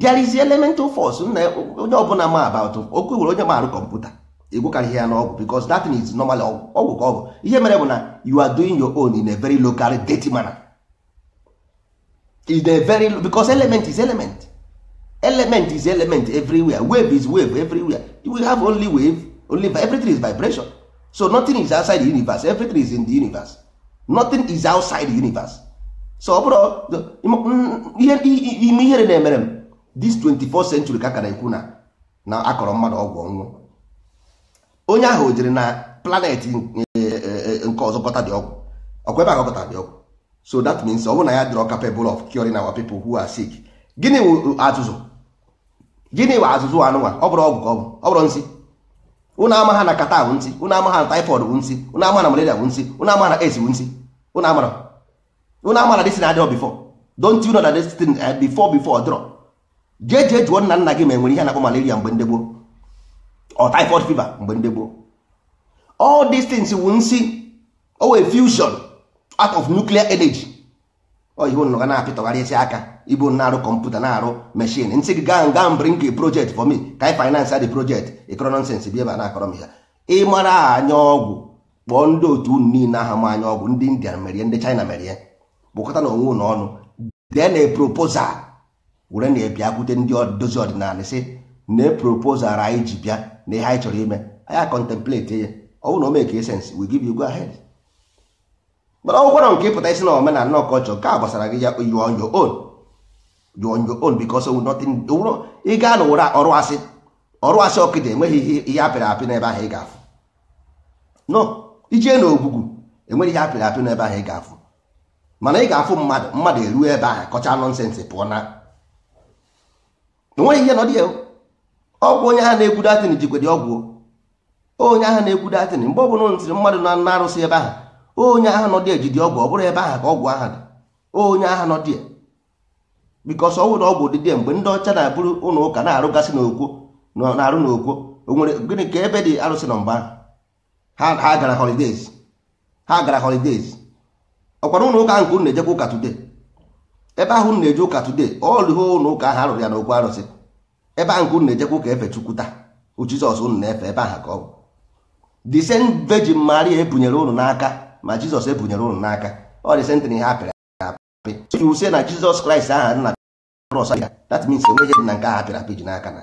there is elemental force onye ọbụla ma about okwu nwere onye maarụ kọmputa egwekarịghị ya n'ọgwụ because that is normally ọgwụ ka ọ ihe mere bụ na you are doing your own in a very local dirty manner in a very because element is element element is element everywhere wave is wave everywhere we have only wave only everything is vibration so nothing is outside the universe everything is in the universe nothing is outside the universe so ọ bụrụ ime ihere na-emere m this 24th century ka ka na-ekwu na na akọrọ mmadụ ọgwụ ọnwụ onye ahụ jiri na planet eh, eh, nke ọzọ kọta dị ọgwụ ọkwa ebe a gọta dị ọgwụ so that means ọ bụrụ na ya dịrọ capable of curing our people who are sick gịnị wụ azụzụ gịnị wụ azụzụ anụnwa ọ bụrụ ọgwụ ka ọ bụ ọ bụrụ nsị ụnụ ama ha na kata bụ nsị ụnụ ama ha na typhoid bụ nsị ụnụ ama na malaria bụ nsị ụnụ ama na AIDS bụ nsị ụnụ amara ụnụ ama na dịsị na adịrọ bifọ don't you know that this thing eh, before before jee jee jụọ nna nna gị ma enwere ihe na-akpọ malaria mgbe ndị gboo or typhoid fever mgbe ndị gboo all these things wu nsi owe fusion out of nuclear energy oyibo nọ na-apịtọgharịsị aka ibu na-arụ kọmputa na-arụ meshin nsị gị gaa nga bring project for me ka anyị finance the project ịkọrọ bi ebe a na-akọrọ m ya ịmara anya ọgwụ kpọọ ndị otu unu niile aha ma anya ọgwụ ndị india merie ndị china merie kpụkọta na onwe unu ọnụ dee na proposal were na-ebiakwute ndị dozi ọdịnala sị na e proposal anyị ji bịa na ihe anyị chọrọ ime anyị contemplate ya ọ bụrụ na o mee ka sense we give you go ahead mana ọgwụkwọ nọ nke ịpụta isi na omenala na ọkọchọ nke a gbasara gị ya you on your own you on your own because nothing ị gaa na ụra ọrụ asị ọrụ asị ọkụ enweghị ihe apịrị apị n'ebe ahụ ị ga-afụ no ijee na ogwugwu enweghị ihe apịrị apị n'ebe ahụ ị ga-afụ mana ị ga-afụ mmadụ mmadụ eruo ebe ahụ kọcha nọnsensị pụọ na enweghị ihe nọ dị ya ọgwụ onye ahụ na-ekwu datin jikwa dị ọgwụ onye ahụ na-ekwu datin mgbe ọ bụla ntiri mmadụ na na arụsị ebe ahụ onye ahụ nọ dị ejidi ọgwụ ọ bụrụ ebe ahụ ka ọgwụ ahụ dị onye ahụ nọ dị bikọs ọnwụ na ọgwụ dịdị mgbe ndị ọcha na-abụrụ ụlọ ụka na-arụgasị n'okwo na-arụ n'okwo o nwere gịnị ka ebe dị arụsị na mba ha gara holidays ha gara holidays ọkwara ụlọ ụka nke unu na-ejekwa ụka today ebe ahụ na-eje ụka today ọlụ ihe ụlọ ụka ahụ arụrụ ya n'okwu arụsị ebe ahụ nke unu na-ejekwa ụka efe chukwu taa jizọs unu na-efe ebe ahụ ka ọ bụ the same virgin Maria ebunyere unu n'aka ma jizọs ebunyere unu n'aka ọ dị sentịrị ha apịrị apị so na jizọs kraịst aha nna na krọs ya that means enweghị dị na nke ahụ apịrị apị ji n'aka na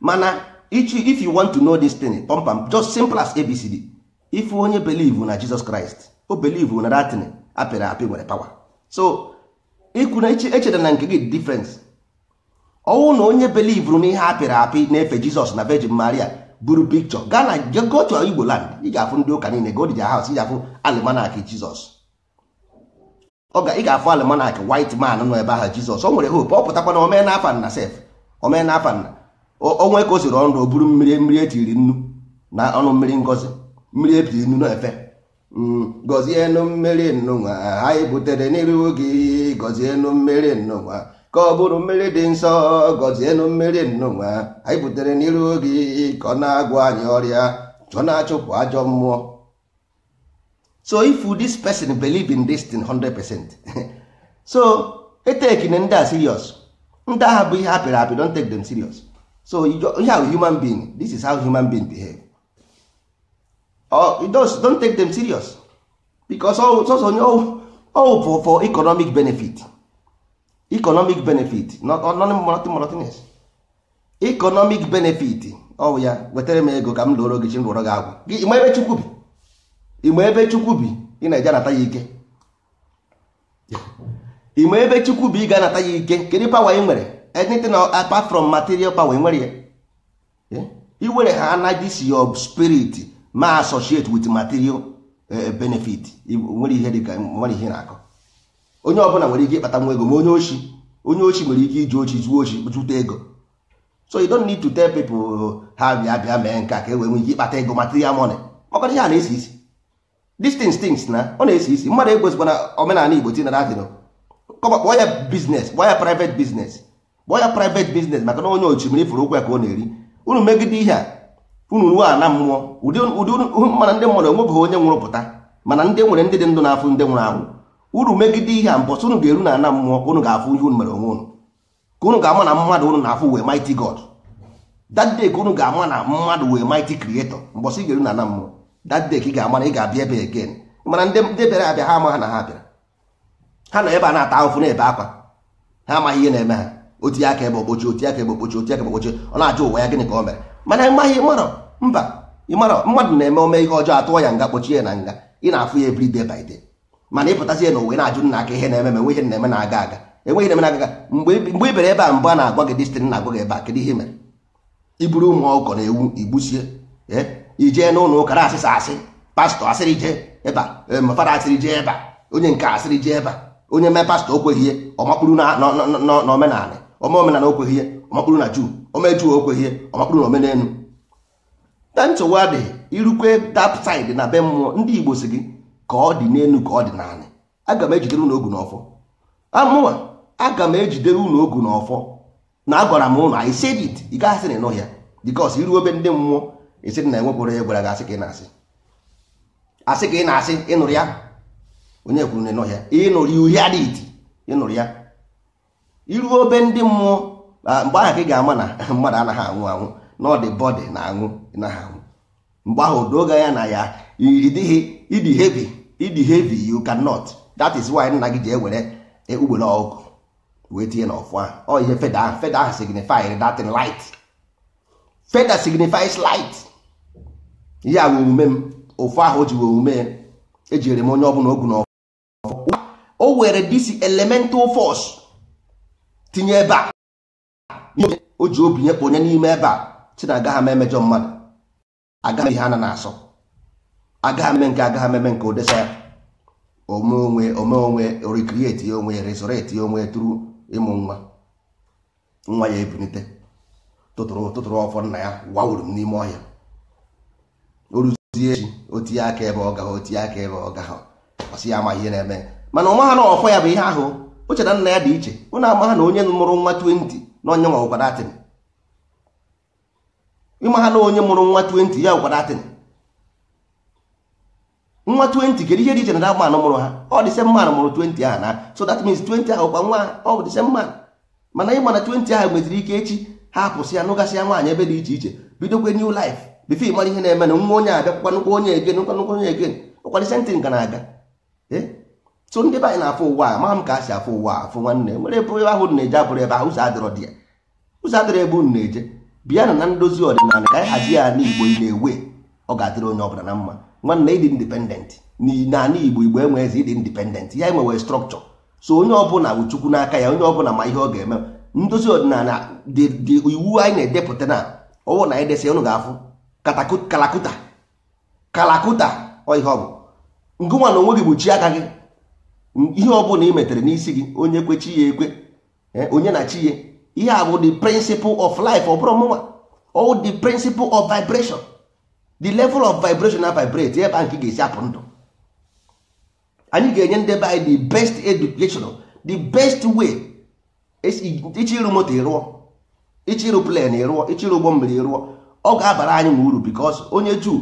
mana if you want to know this thing pompam just simple as abcd if onye believe na jizọs kraịst o believe na datin apịrị apị nwere pawa so ikwu na echeta na nke gị difference ọnwụ na onye belivuru na ihe apịrị apị na-efe jizọs na virgin maria buru pikchọ gaa na gochọ igbo land ị ga-afụ ndị ụka niile godija haus ị ga-afụ almanak jizọs ị ga-afụ almanak white man nọ ebe ahụ jizọs o nwere hope ọ pụtakwa na omee na afa sef omee na afa nna onwe ka o siri ọnụ o buru mmiri mmiri etiri nnu na ọnụ mmiri ngozi mmiri etiri nnu na-efe gọzienụ mmiri nnụnwa anyị butere n'iru gị gọzienụ mmiri nnụnwa ka ọ bụrụ mmiri dị nsọ gọzienụ mmiri nnụnwa anyị butere n'iru gị ka ọ na-agwọ anyị ọrịa ka na-achụpụ ajọ mmụọ so if this person believe in this thing 100% so etekine ndị a serious ndị agha bụ ihe apịrị apị don't take them serious so ihe a human being this is how human being behave or oh, it does don't take them serious because sọsọ onye ọwụ for for economic benefit economic benefit not monotonous economic benefit ọwụ oh, ya wetara m ego ka m lụọrọ gị chi m gị agwụ gị ebe chukwu bi ịma ebe chukwu bi ị na-eje anata ya ike ịma ebe chukwu bi ị ga-anata ya ike kedu pawa ị nwere anything apart from material power nwere ya iwere eh? ha anagisi si spirit ma associate with material eh, benefit nwere ihe dịka nwere ihe na-akọ onye ọbụla nwere ike ịkpata nwa ego ma onye ochi onye ochi nwere ike iji ochi zuo ochi zụta ego so you don't need to tell people oh, ha bịa bịa mee nke ka e wee nwee ike ịkpata ego material money maka ihe a na-esi isi these things na ọ na-esi isi mmadụ na omenala Igbo tinara adịrọ kọba kpọọ ya biznes kpọọ ya private business kpọọ ya private business maka na onye ochi mere ifuru ụkwụ ya ka ọ na-eri unu megide ihe a unu ruo ana mmụọ ụdị mana ndị mmadụ enwebeghị onye nwụrụ pụta mana ndị nwere ndị dị ndụ na-afụ ndị nwụrụ anwụ uru megide ihe a mbọsị unu ga-eru na ana mmụọ unu ga-afụ ihe unu mere onwe unu ka unu ga-ama na mmadụ unu na-afụ wee mighty God that day ka unu ga-ama na mmadụ wee mighty creator mbọsị ị ga-eru na ana mmụọ that day ka ị ga-ama na ị ga-abịa ebe again mana ndị bịara abịa ha ama na ha bịara ha nọ ebe a na-ata ahụfụ na-ebe akwa ha amaghị ihe na-eme ha otinye aka ebe okpochi otinye aka ebe okpochi otinye aka ebe okpochi ọ na-ajụ ụwa ya gịnị ka o mere mana ịmaghị ịmarọ mba ịmarọ mmadụ na-eme ome ihe ọjọọ atụọ ya nga kpochie ya na nga ị na-afụ ya ebiri day by day mana ịpụtazie na ụwa na-ajụ nna aka ihe na-eme ma enwe na-eme na-aga aga enweghị na-eme na-aga aga mgbe ị e e bere ebe a mbụ a na-agwa gị dịstịn na-agwa gị ebe a kedu ihe mere iburu ụmụ ọkụkọ na ewu igbusie ijee e, n'ụlọ ụka na asịsa asị pastọ asịrị jee ebe a mafada asịrị jee ebe onye nke asịrị jee ebe a onye mee pastọ okweghị ihe ọ makpuru na omenala ọma omenala okweghị ihe ọmakpụrụ na juu ọma juu okweghị ihe ọmakpụrụ na omenelu na nsogbu adịghị irukwe that side na be mmụọ ndị igbo si gị ka ọ dị n'elu ka ọ dị n'ala aga m ejidere unu ogu n'ọfọ amụwa aga m ejidere unu ogu n'ọfọ na agwara m ụnụ anyị said it ị gaghị asị na ịnụhịa because iru ebe ndị mmụọ esiri na enwepụrụ ya gwara gị asị ka ị na-asị asị ka ị na-asị ịnụrụ ya onye kwuru na ịnụhịa ịnụrụ ya uhie adịghị ịnụrụ ya iruo obe ndị mmụọ mgbe ahụ ị ga-ama na mmadụ anaghị anwụ anwụ na ọ dị bọdị na anwụ naghị anwụ mgbe ahụ doga ya na ya ịdị heavy ịdị heavy you cannot dat is why nna gị ji ewere e, ugbere ọgụ wee tinye n'ọfụ ahụ ọ ihe feda feda ahụ signifies that light feda signifies light ihe a omume m ofu ahụ o ji omume ejiri m onye ọbụla ogu n'ọfụ ọ were this elemental force tinye ebe a o ji obi nyekwa onye n'ime ebe a si na agaghị emejọ mmadụ agaghị ihe a na asọ agaghị m nke agaghị m eme nke odesa ya ome onwe ome onwe recreate ya onwe resurrect ya onwe tụrụ ịmụ nwa nwa ya ebunite tụtụrụ tụtụrụ ọfọ nna ya wawuru m n'ime ọhịa o ruzie echi o aka ebe ọ gaghị otinye aka ebe ọ gaghị ọsị ya amaghị ihe na-eme mana ọ ha na ọfọ ya bụ ihe ahụ o na nna ya dị iche ụnụ amaha na onye mụrụ nwa 20 na onye nwa ụkwara atịn ịma na onye mụrụ nwa 20 ya ụkwara atịn nwa 20 kedu ihe dị iche na dagba anụ mụrụ ha ọ dị se mmanụ mụrụ 20 ahụ na so that means 20 ahụ kwa nwa ha ọ dị se mana ịma 20 ahụ ike echi ha apụsị ya nụgasịa nwaanyị ebe dị iche iche bidokwe new life bifo ịmara ihe na emena nwa onye abịakwakwa nnukwu onye egen nkwa onye egen ụkwadị na-aga ee eh? so ndị be anyị na-afụ ụwa a ma m ka a si afụ ụwa afụ nwanne nwere ebe ahụ na-eje abụrụ ebe ahụ ụzọ adịrọ dị ya ụzọ adịrọ ebe unu na-eje bịa na na ndozi ọdịnala ka anyị hazie ya n'igbo na-ewe ọ ga-adịrị onye ọbụla na mma nwanne ịdị indipendent n'ala igbo igbo enwe eze ịdị indipendent ya enwewe strọkchọ so onye ọbụla bụ chukwu n'aka ya onye ọbụla ma ihe ọ ga-eme ndozi ọdịnala dị iwu anyị na-edepụta na ọwụ na edesa desi ga-afụ kalakuta kalakuta ọ ihe ọ bụ ngụnwa na onwe gị aka gị ihe ọbụla ị metere n'isi gị onye kwe chi ya ekwe eh, onye na chi ya ihe a bụ the principle of life ọ bụrụ mụnwa all the principle of vibration the level of vibration na vibrate ebe a nke ga-esi apụ ndụ anyị ga-enye ndị be anyị the best education the best way ichi ịrụ moto ịrụọ ichi ịrụ plen ịrụọ ichi ụgbọ mmiri ịrụọ ọ ga-abara anyị ma uru because onye juu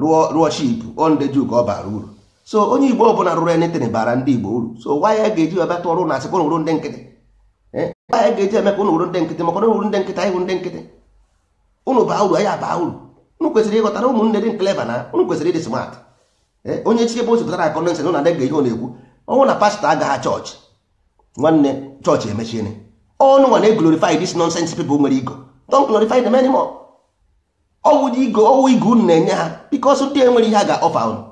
rụọ rụọ ship onde juu ka ọ bara uru so onye igbo ọbụla rụrụ anything bara ndị igbo uru so nwa ya ga-eji bịa tụọ ọrụ na asịkwa n'uru ndị nkịtị nwa eh? ya ga-eji eme ka ụnụ wuru ndị nkịtị maka ụnụ wuru ndị nkịtị anyị wuru ndị nkịtị ụnụ baa uru anyị abaa uru ụnụ kwesịrị ịghọtara ụmụnne dị clever na ụnụ kwesịrị ịdị smart eh? onye chi ebe o sipụtara akọnensị na na-adị ga-eji ọ na-ekwu ọnwụ na pastọ agaghị chọọchị nwanne chọọchị emechiene ọnụ nwa na-eglorify this nonsense people nwere igo don't glorify them anymore ọwụ igo ọwụ igo unu na-enye ha because ndị enwere ihe a ga-ọfa unu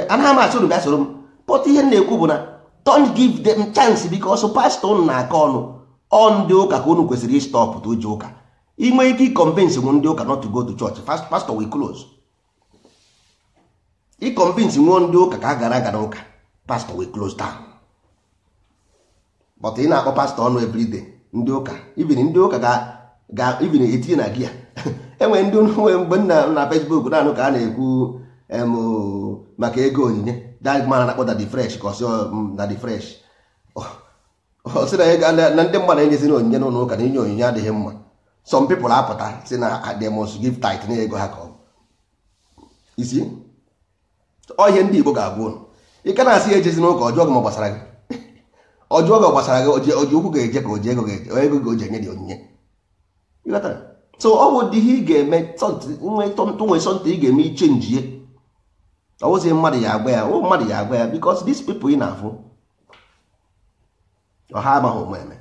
anaghị m achọ unu bịa soro m pọta ihe na-ekwu bụ na don give them chance because pastọ unu na-akọ ọnụ ọ ndị ụka ka unu kwesịrị ịstọpụta uji ụka inwe ike ịkọmvinsi nwe ndị ụka not to go to church pastọ we close ịkọmvinsi nwe ndị ụka ka a gara aga n'ụka pastọ we close down but ị na-akpọ pastọ ọnụ everyday ndị ụka even ndị ụka ga even etinye na gia enwere ndị nwe mgbe na Facebook naanị ka a na-ekwu maka ego onyinye dagmana na-akpọta dị fresh ka ọsị um, oh, oh, na dị fresh ọsị na ndị mmadụ enyezina onyinye n'ụlọ ụka na inye onyinye adịghị mma some people apụta si na they must give tithe na ego ha ka isi ọhịa ndị Igbo ga agwụ ụnụ ị ka na-asị ya ejezi n'ụka ọjọọ gị ma gbasara gị ọjọọ gị gbasara gị oji ụkwụ ga-eje ka oji ego ego ga oji enye dị onyinye so ọ bụ dị ihe ị ga-eme nwee sọntị ị ga-eme ichenjie ozi mmadụ ya agba ya o mmadụ ya agba ya because these people ị na-afụ ọha amaghị ụmụ eme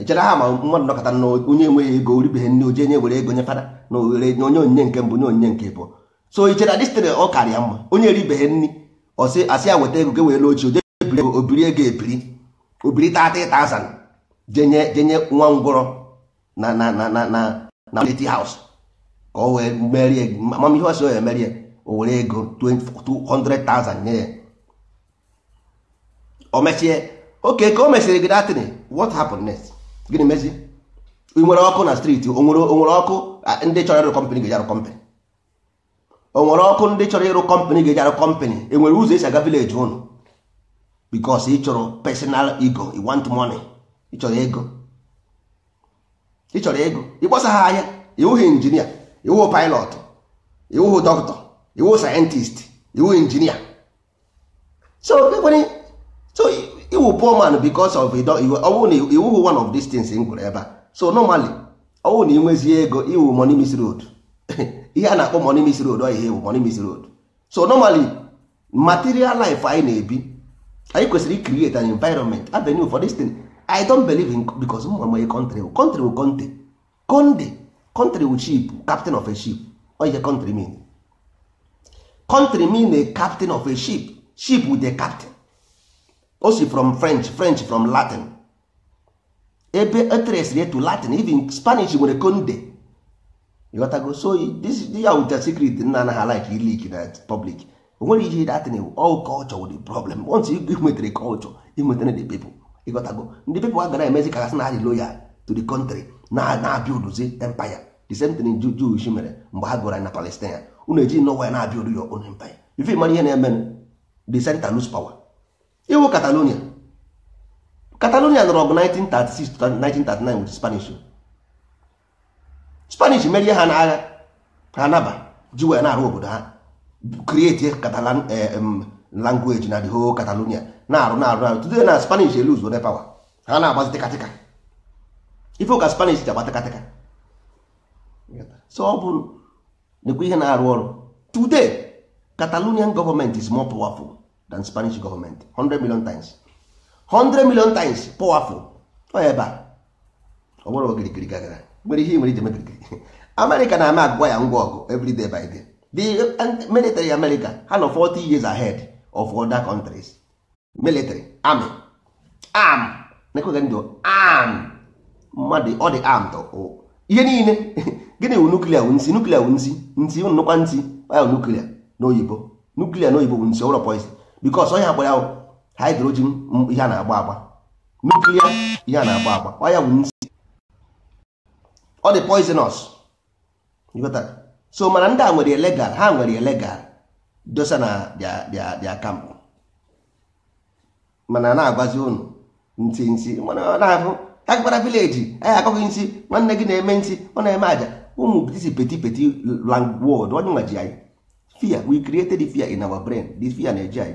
ichere ha ma mmadụ nọkọta na onye enweghị ego oribeghị nne oji enye were ego nye fada na oghere onye onyinye nke mbụ nye onyinye nke bụ so ichere dịstịrị ọ karịa mma onye eribeghe nri ọsị asị ya ego ge were ochie oje ebiri ego obiri ego ebiri obiri tata ịta jenye jenye nwa ngwọrọ na na na na na na ka o wee merie amamihe ya o were ego 200,000 nye ya o mechie oke ka o mesịrị gị datịn what happened next gịnị mezi ị nwere ọkụ na streeti o nwere ọkụ ndị chọrọ ịrụ kọmpanị ga-eji arụ kọmpanị o nwere ọkụ ndị chọrọ ịrụ kọmpanị ga-eji arụ kọmpanị nwere ụzọ esi aga vileji ụnụ bikos ị chọrọ personal ego ị want money ị chọrọ ego ịchọrọ ego ịgbasa ha ahịa ịwụghị injinia ịwụghị pilot ịwụghị dọkịta iwu scientist iwu engineer so ekwere so iwu poor man because of ọ bụrụ na iwu one of these things m gwụrụ ebe a so normally ọ bụrụ na ị nwezie ego iwu money mis road ihe a na-akpọ money miss road ọ ihe iwu money miss road so normally material life anyị na-ebi anyị kwesịrị create an environment avenue for this thing i don't believe in because mma my country country will conte conde country will ship captain of a ship ọ ihe country mean country mean a captain of a ship ship with a captain o si from french french from latin ebe eteresiri etu latin even spanish nwere conde ịghọtago so this ya wuta secret nna anaghị like ilik na uh, public o nwere ihe datin all culture with the problem once you nwetere culture inwetara the people ịghọtago ndị people agara emezi ka gasị na adị loyal to the country na na-abịa uduzi empire the same thing Jewish mere mgbe ha gụra na Palestine unu eji nọwa ya na-abịa oru your own ya ife mara ihe na-eme de senta lose pawa iwu Catalonia Catalonia nọrọ ọgụ 1936 to 1939 with Spanish Spanish merie ha n'agha ha naba ji ya na-arụ obodo ha create Catalan eh, language na the whole Catalonia na-arụ na-arụ arụ today na Spanish e lose one power ha na-agbazi tịkatịka ife ụka Spanish ji agba tịkatịka nekwa ihe na-arụ ọrụ today Catalonian government is more powerful than Spanish government 100 million times 100 million times powerful ọ ebe a ọ bụrụ ogirigiri gagara nwere ihe nwere iji mebirigiri America na-ama agwa ya ngwa ọgụ everyday by day the military America ha nọ 40 years ahead of other countries military army arm nekweghị ndụ arm mmadụ ọ dị armed ihe niile gịnị wụ nuklia wụ nsi nuklia wụ nsi nsi nnukwa nsi ahụ nuklia n'oyibo nuklia n'oyibo bụ nsi ụlọ poison bikos ọnya gbara ahụ hidrojin ihe a na-agba agba nuklia ihe a na-agba agba ọnya wụ nsi ọ dị poisonous so mana ndị a nwere legal ha nwere legal dosa na dia kamp mana na-agwazi ụnụ nti nsi mana ọ na-ahụ agara vileji anyị akọghị nsi nwanne gị na-eme nsi ọ na-eme aja ụmụ disi peti peti langwod onye nwa ji anyị fear we created the fear in our brain the fear na-eji anyị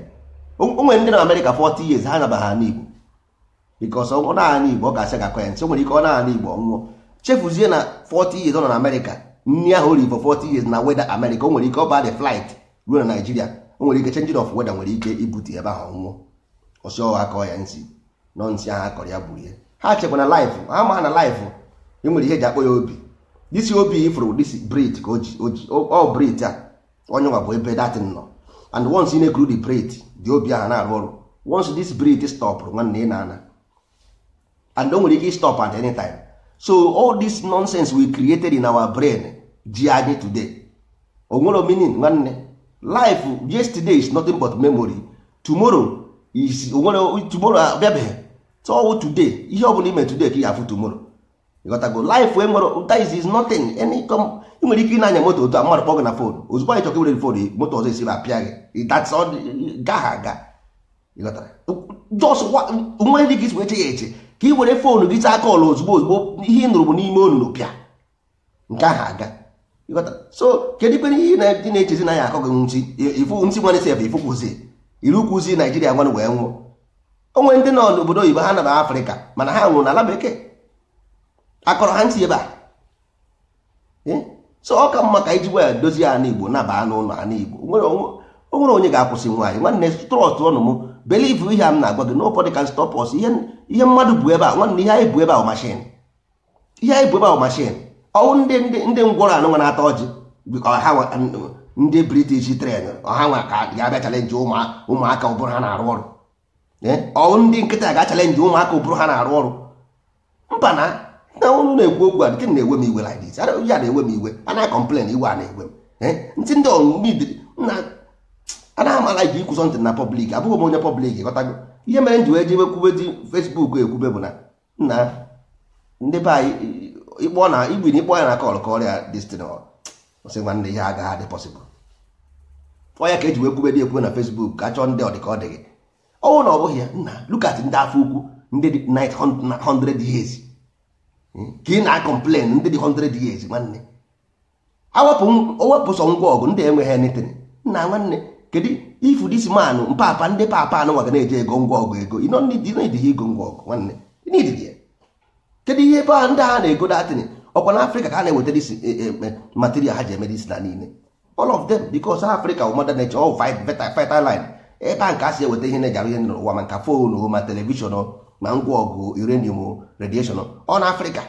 onwe ndị na amerịka 40 years ha nabaha ha n'igbo because ọ naanị igbo ọ ga-asị gakọ ya o nwere ike ọ naanị igbo ọnwụọ chefuzie na 40 years ọ nọ na amerịka nri ahụ ori for 40 years na weda amerịka o nwere ike ọ ba the flight ruo na naijiria o nwere ike change of weda nwere ike ibute ebe ahụ nwụọ. Um, ọsị ọha akọ ya nsị nọ nsị ahụ akọrọ ya gburu ya ha chekwa na life ha ma na life e nwere ihe eji akpọ ya obi this obi ifuru this brit ka oji all brit a onye nwa bụ ebe datin nọ and once ị na-ekuru the brit dị obi ahụ na-arụ ọrụ once this brit stop, nwanne ị na-ana and o nwere ike stop at any time so all this nonsense we created in our brain ji anyị today o nwere meaning nwanne life yesterday is nothing but memory tomorrow is o nwere tomorrow abịabeghị so today ihe ọ bụla ime today ka ị ga-afụ tomorrow ịghọtago life enwere that is nothing any com ị nwere ike ịnanya moto otu a mmadụ kpọọ na fon ozugbo anyị chọka iwere fon moto ọzọ esiri apịa gị that's all gaha aga ịghọtara just ndị gị wee che ya eche ka ị were fon gị taa kọl ozugbo ozugbo ihe ị nụrụ bụ n'ime onunu pịa nke aha aga ịghọtara so kedu ikpere ihe dị na-echezi na ya akọ gị nsi ifu nsi nwanne si ebe ifu kwụzi iru kwụzi naijiria nwanụ wee nwụọ o onwe ndị nọ n'obodo oyibo ha naba afrịka mana ha nwụrụ n'ala bekee akọrọ ha ntị ebe a so ọ ka mma ka iji gwa ya dozie ala igbo nabaa n'ụlọ ala igbo o nwere onye ga-akwụsị nwaanyị nwanne trọst ọnụ m believe ihe a m na-agwa gị nobody can stop us ihe mmadụ bụ ebe a nwanne ihe anyị bụ ebe a mashin ihe anyị bụ ebe a mashin ọwụ ndị ndị ngwọrọ anụ nwa na-ata ọjị ndị british tren ọha nwa ka ga-abịa chalenji ụmụaka ụbụrụ ha na-arụ ọrụ ọwụ ndị nkịta ga-achalenji ụmụaka ụbụrụ ha na-arụ ọrụ mba na na unu na-ekwu okwu a nke na-ewe m iwe like this ya na-ewe m iwe ana na-akọmplen iwe a na-ewe m eh? ntị ndị ọnụidiri na anaghị amala iji ikwụsọ sọntị na pọblik abụghị m onye pọblik ghọtago ihe mere nji wee jebe kwube di fesbuk ekwube bụ na nna ndị be anyị ịkpọ na igwe na ya na kọl ka ọrịa destin sị nwanne ihe agaghị adị pọsịbụl ọya ka eji wee kwube dị ekwube na fesbuk ka chọọ ndị ọdịka ọ dịghị ọnwụ na ọ bụghị ya nna lukat ndị afọ ukwu ndị 900 years ka ị na-akọmplen ndị dị 100 years nwanne owepụ sọ ngwa ọgụ ndị enweghị anything nna nwanne kedu ifu dis man mpapa ndị papa anụ nwaga na eji ego ngwa ọgụ ego ịnọdịghị ego ngwa ọgụ nwanne kedu ihe ebe a ndị a na-ego datin ọkwa na afrịka ka ha na-eweta dis material ha ji eme dis na niile all of them because Africa wụ mother nature all vital line ebe a nke a si eweta ihe na-eji arụ ihe n'ụwa ma nka fon ma telivishọn ma ngwa ọgụ uranium radiation ọ na afrịka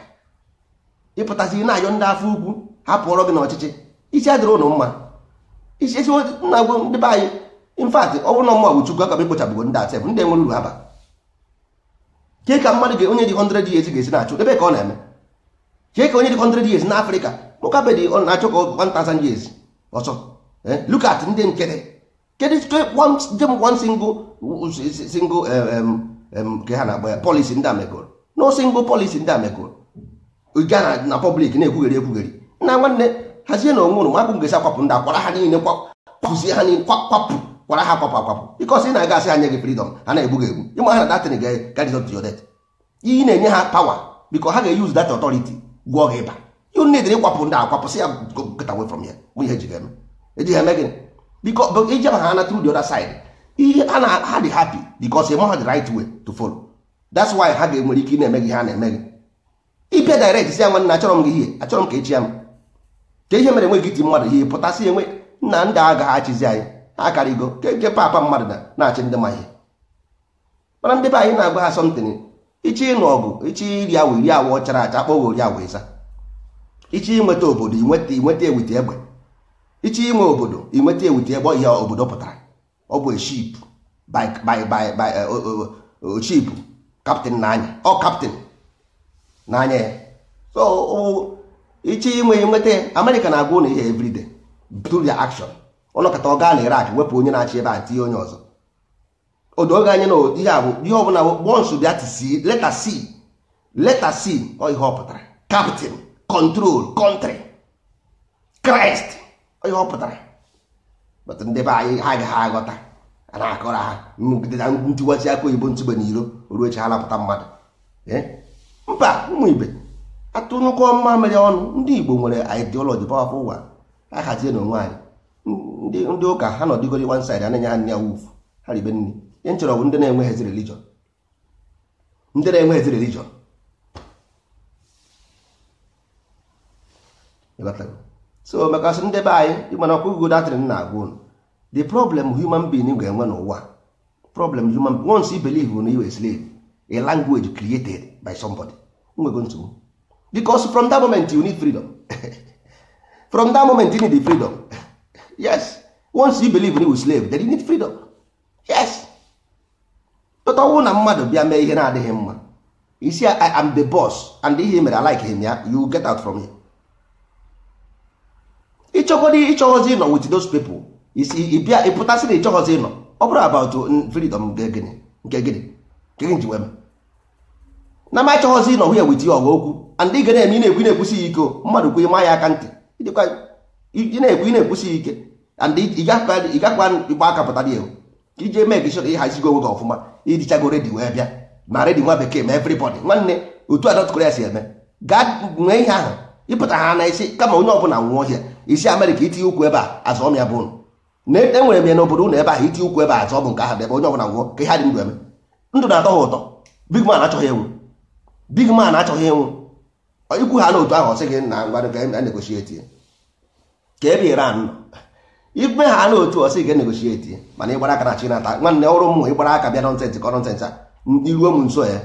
ịpụtasị na-ayọ ndị afọ ukwu hapụọrọ gị n'ọchịchị isi adịrị ụnụ mma isi nna gwo ndị be anyị infat ọ bụrụ na mma bụ chukwu aka m ikpochapụgo ndị atef ndị e nwere uru haba ke ka mmadụ ga onye dị 100 years ga-esi na-achụ ebe ka ọ na-eme ke ka onye dị 100 years na afrịka ụka bedị ọ na achọ ka 1000 years ọsọ eh, look at ndị nkịtị kedụ one single single um, um, nke ha na-akpọ ya polisi ndị a megoro na osi ngụ polisi ndị a megoro na pọblik na-ekwugheri ekwugheri na nwanne hazie na onwe ụrụ mapụ ngesi akwapụ ndị akwara ha niile kwapụzie ha niile kwapụ kwara ha kwapụ akwapụ ịkọsi ị na-aga asị ha nye gị fridọm ha na-egbu gị egbu ịma ha na datin gadizot yodet iyi na-enye ha pawa biko ha ga-eyuz dat ọtọriti gwụọ gị ịba you need kwapụ ndị akwapụ sị ya get away from ya bụ ihe ejighị eme ejighị eme gịnị biko ijeba ha na tru the other ihe a na ha dị happy because ị ha the right way to follow that's why ha ga-enwere ike ị na-eme gị ha na-eme gị ịbịa direct si ya nwanne achọrọ m gị ihe achọrọ m ka echi ya m ka ihe mere enweghị iti mmadụ ihe pụtasị enwe nna ndị agaghị achịzi anyị ha akarịgo ke papa mmadụ na-achị ndị ma ihe mana ndị be anyị na-agwa ha asọmtin ichi ịnụ ọgụ ichi iri awụ iri awụ chara acha akpọghị ori awụ ịza ichi inweta obodo inweta ewite egbe ichi inwe obodo inweta egbe ihe obodo pụtara ọ bụ ship by by by by uh, uh, uh, ship captain n'anya ọ captain n'anya ya so iche inwe nweta amerịka na-agwa ụlọ ihe everyday through their action ọnọkọta ọ gaa na irak wepụ onye na-achị ebe a tinye onye ọzọ odoge anya na ihe abụ ihe ọbụla bọnsụ bịa tisi leta c leta c ọ ihe ọ pụtara captain control country kraịst ọ ihe ọ pụtara ndị be anyị ha agaghị aghọta a na-akọrọ ha ntiwachi aka oyibo ntụgbe na iro ruo chi ha mmadụ mba ụmụ ibe atụnụkọ mma mere ọnụ ndị igbo nwere ideology powerful ụwa a hazie na onwe anyị ndị ụka ha nọdịgori one side anaghị ha nne ya ha ribe nri bụ ndị na-enweghịzi religion ndị na-enweghịzi religion so maka sị ndị be anyị mana ọkụ ugo datịrị na agwa unu the problem human being ga-enwe n'ụwa problem human once you believe na you a slave a language created by somebody nwego nsogbu because from that moment you need freedom from that moment you need the freedom yes once you believe na a slave then you need freedom yes but tota ọnwụ na mmadụ bịa mee ihe na-adịghị mma see, I am the boss and ihe mere I like him ya you get out from here. ịchọgodi ịchọghọzi ịnọ with those people ịbịa ịpụtasị na ịchọghọzi ịnọ ọ bụrụ about freedom nke gịnị nke gị ji wee na m achọghọzi ịnọ hụ wit ya ọgụ okwu and ị ga na-eme ị na-ekwu na-ekwusi ya ike mmadụ kwe ịma ya aka ntị ị na-ekwu ị na-ekwusi ya ike and ị gakwa ịgba aka pụtara ya iji eme gị shọrọ ịhazigo onwe gị ọfụma idichago redi wee bịa na redi nwa bekee ma everybody nwanne otu a North ya si eme gaa nwee ihe ahụ ịpụta ha na isi kama onye ọbụla nwụọ ọhịa isi amerịka itinye ukwu ebe a azọ m bụ na enwere m ya n'obodo ụnụ ebe ahụ itinye ukwu ebe a azọ bụ nke ahụ ebe onye ọbụla gwụọ ka ha dị ndụ eme ndụ na-atọ ha ụtọ big man achọghị enwu big man achọghị enwu ikwu ha n'otu ahụ ọsị gị na ngwa e, e na-egosi etinye ka ebe iran nọ ibe ha n'otu ọsị gị e negosi etinye mana ịgbara aka na chi nata nwanne ọrụ m ịgbara aka bịa nọnsensị kọnọnsensị a iruo m nso ya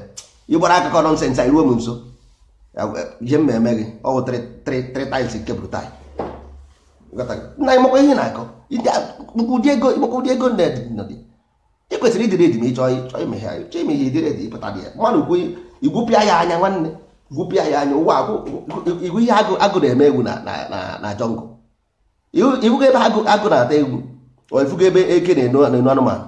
ịgbara aka kọnọnsensị a iruo m nso ihe mmemme gị ọ bụ 3 times nke brutal na na-akọ ụdị ego ịmakwa ụdị ego ị kwesịrị ịdịrị edi ma ịchọ chọọ ime chọọ ihe edi ịpụta dị ya mmadụ igwupịa anya nwanne gwupịa ya anya ụwa igwu ihe agụ na-eme egwu na jọngụ ihugo ebe agụ na-ata egwu o ebe eke na-enu anụmanụ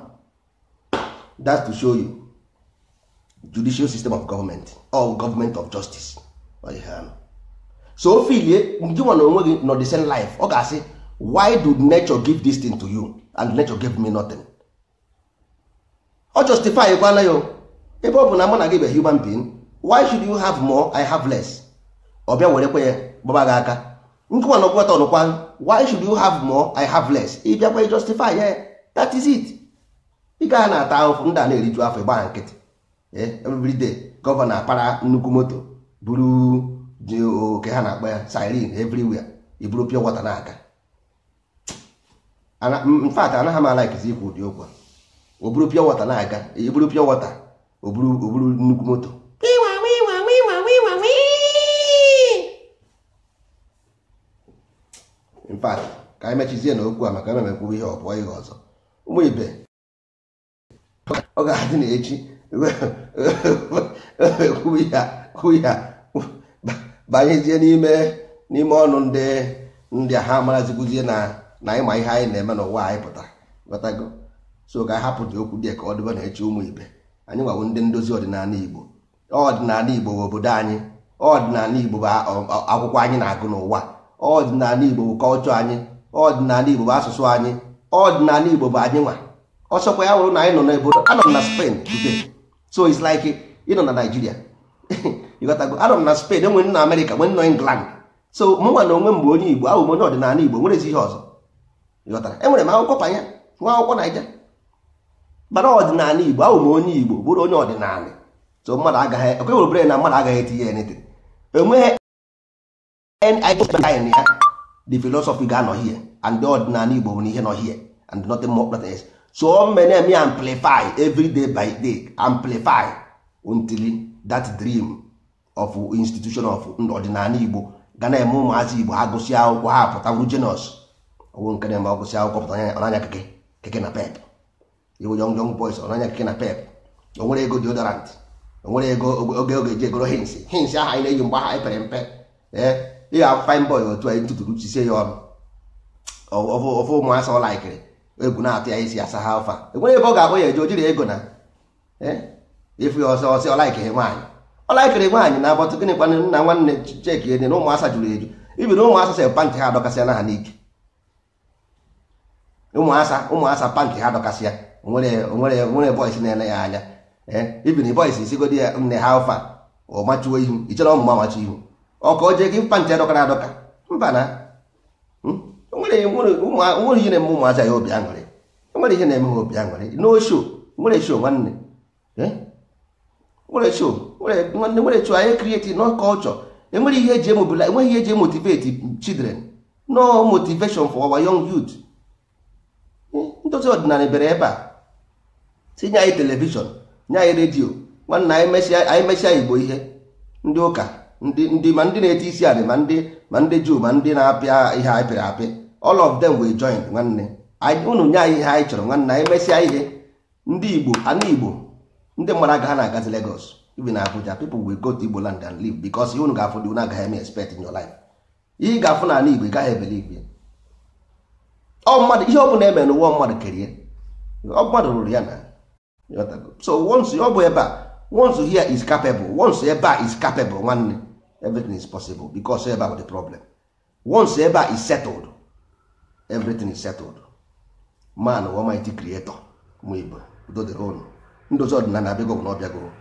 to of government or government of justice so o filie gị na onwe gị nọ the same life ọ ga-asị why did nature give this thing to you and nature gave me nothing ọ justify kwana ya ebe ọ bụ na mụ na gị bụ human being why should you have more i have less ọ bịa kpe eh, ya gbaba gị aka nkụwa na ọgwụgwata ọnụkwa why should you have more i have less ị bịakwa justify ya eh, that is it ị gaa na-ata ahụfụ ndị a na-eriju afọ ịgba nkịtị eh, every day gọvanọ apara nnukwu moto buru dị oke ha na-akpa ya siren everywhere iburu pure water na-aga mfat anaghị m alaikizi ikwu ụdị okwu o buru pure water na-aga iburu pure water o buru nnukwu moto mfat ka anyị mechizie na okwu a maka na mekwuru ihe ọ bụọ ihe ọzọ ụmụ ibe ọ ga-adị na echi ekwughị ya banyezie n'ime n'ime ọnụ ndị ndị a ha maraziguzie na na ịma ihe anyị na-eme n'ụwa anyị pụtara ghọtago so ka hapụ dị okwu dị ka ọ dịba na eche ụmụ ibe anyị nwawo ndị ndozi ọdịnala Igbo ọdịnala Igbo bụ obodo anyị ọdịnala Igbo bụ akwụkwọ anyị na-agụ n'ụwa ọdịnala Igbo bụ kọlchọ anyị ọdịnala Igbo bụ asụsụ anyị ọdịnala Igbo bụ anyị nwa ọsọkwa ya wụrụ na anyị nọ n'obodo anọ na Spain so it's like ịnọ na ịghọtago anọ m na Spain enwe nna Amerịka nwe nọ England so mụnwa na onwe m bụ onye Igbo ahụ onye ọdịnala Igbo nwere ezi ihe ọzọ ịghọtara enwere m akwụkwọ panya nwa akwụkwọ Naija bara ọdịnala Igbo ahụ m onye Igbo bụrụ onye ọdịnala so mmadụ agaghị ekwe werebere na mmadụ agaghị etinye ya nete enweghị nid ya the philosophy ga-anọ hie and the ọdịnala Igbo nwere ihe nọ hie and nothing more nothing else so many me amplify every day by day amplify until that dream of institution of ọdịnala igbo ga na-eme ụmụazị igbo ha gụsị akwụkwọ ha pụtawuru jenọs ọwụ nke na-eme ọgụsị akwụkwọ pụta ọnanya keke keke na pep iwu young young boys ọnanya keke na pep O nwere ego deodorant nwere ego oge oge ji egoro hins hins aha anyị na-eyi mgbe aha pere mpe ee ịga fine boy otu anyị ntụtụrụ chisie ya ọnụ ọfụ ụmụasa ọlaikiri. egwu na-atụ ya isi asa ha ọfa enwere ebe ọ ga-abụ ya eje o jiri ego na ịfụ ya ọsọ ọsọ ọ nwaanyị ọlakịrị nwaanyị na-agbọtụ gịnị kwana nna nwanne cheki ede na ụmụasa jụrụ eju ibiri ụmụasa sị pantị ha adọkasịala ha n'ike ụmụasa ụmụasa pantị ha adọkasịa nwere bọis na-ele ya anya ibiri bọis isigodi ya nne ha ụfa ọ machuo ihu ichere ọmụma machu ihu ọ ka o jee gị pantị adọkara adọka mba na hmm? nwere ihe na-eme ụmụasa ya obi aṅụrị nwere ihe na-eme ha obi aṅụrị n'osho nwere sho nwanne nwere sho nwere chụ anyị krieti no culture enwere ihe eji emobila enweghị ihe eji emotivate children no motivation for our young ndozi eh, ọdịnala bere ebe a tinye anyị telivishọn nye anyị redio nwanna anyị mesịa igbo ihe ndị ụka ndị ma ndị na-eti isi anị ma ndị ma ndị juu ma ndị na-apịa ihe anyị pịrị apị all of them wee join nwanne ụnụ nye anyị ihe anyị chọrọ nwanne anyị mesịa ihe ndị igbo ana igbo ndị mmadụ agaghị na-agazi legos even Abuja people will go to Igbo land and live because unu ga-afụ dị unu agaghị eme expect in your life ihe ga-afụ na ala Igbo ị gaghị ebelive ọ mmadụ ihe ọ bụla eme n'ụwa mmadụ kerie ọ mmadụ rụrụ ya na so once ọ bụ ebe a once here is capable once ebe a is capable nwanne everything is possible because ebe a bụ the problem once ebe a is settled everything is settled man almighty creator ma Igbo udo dịrị unu ndozi ọdịnala abịago bụ na ọ bịago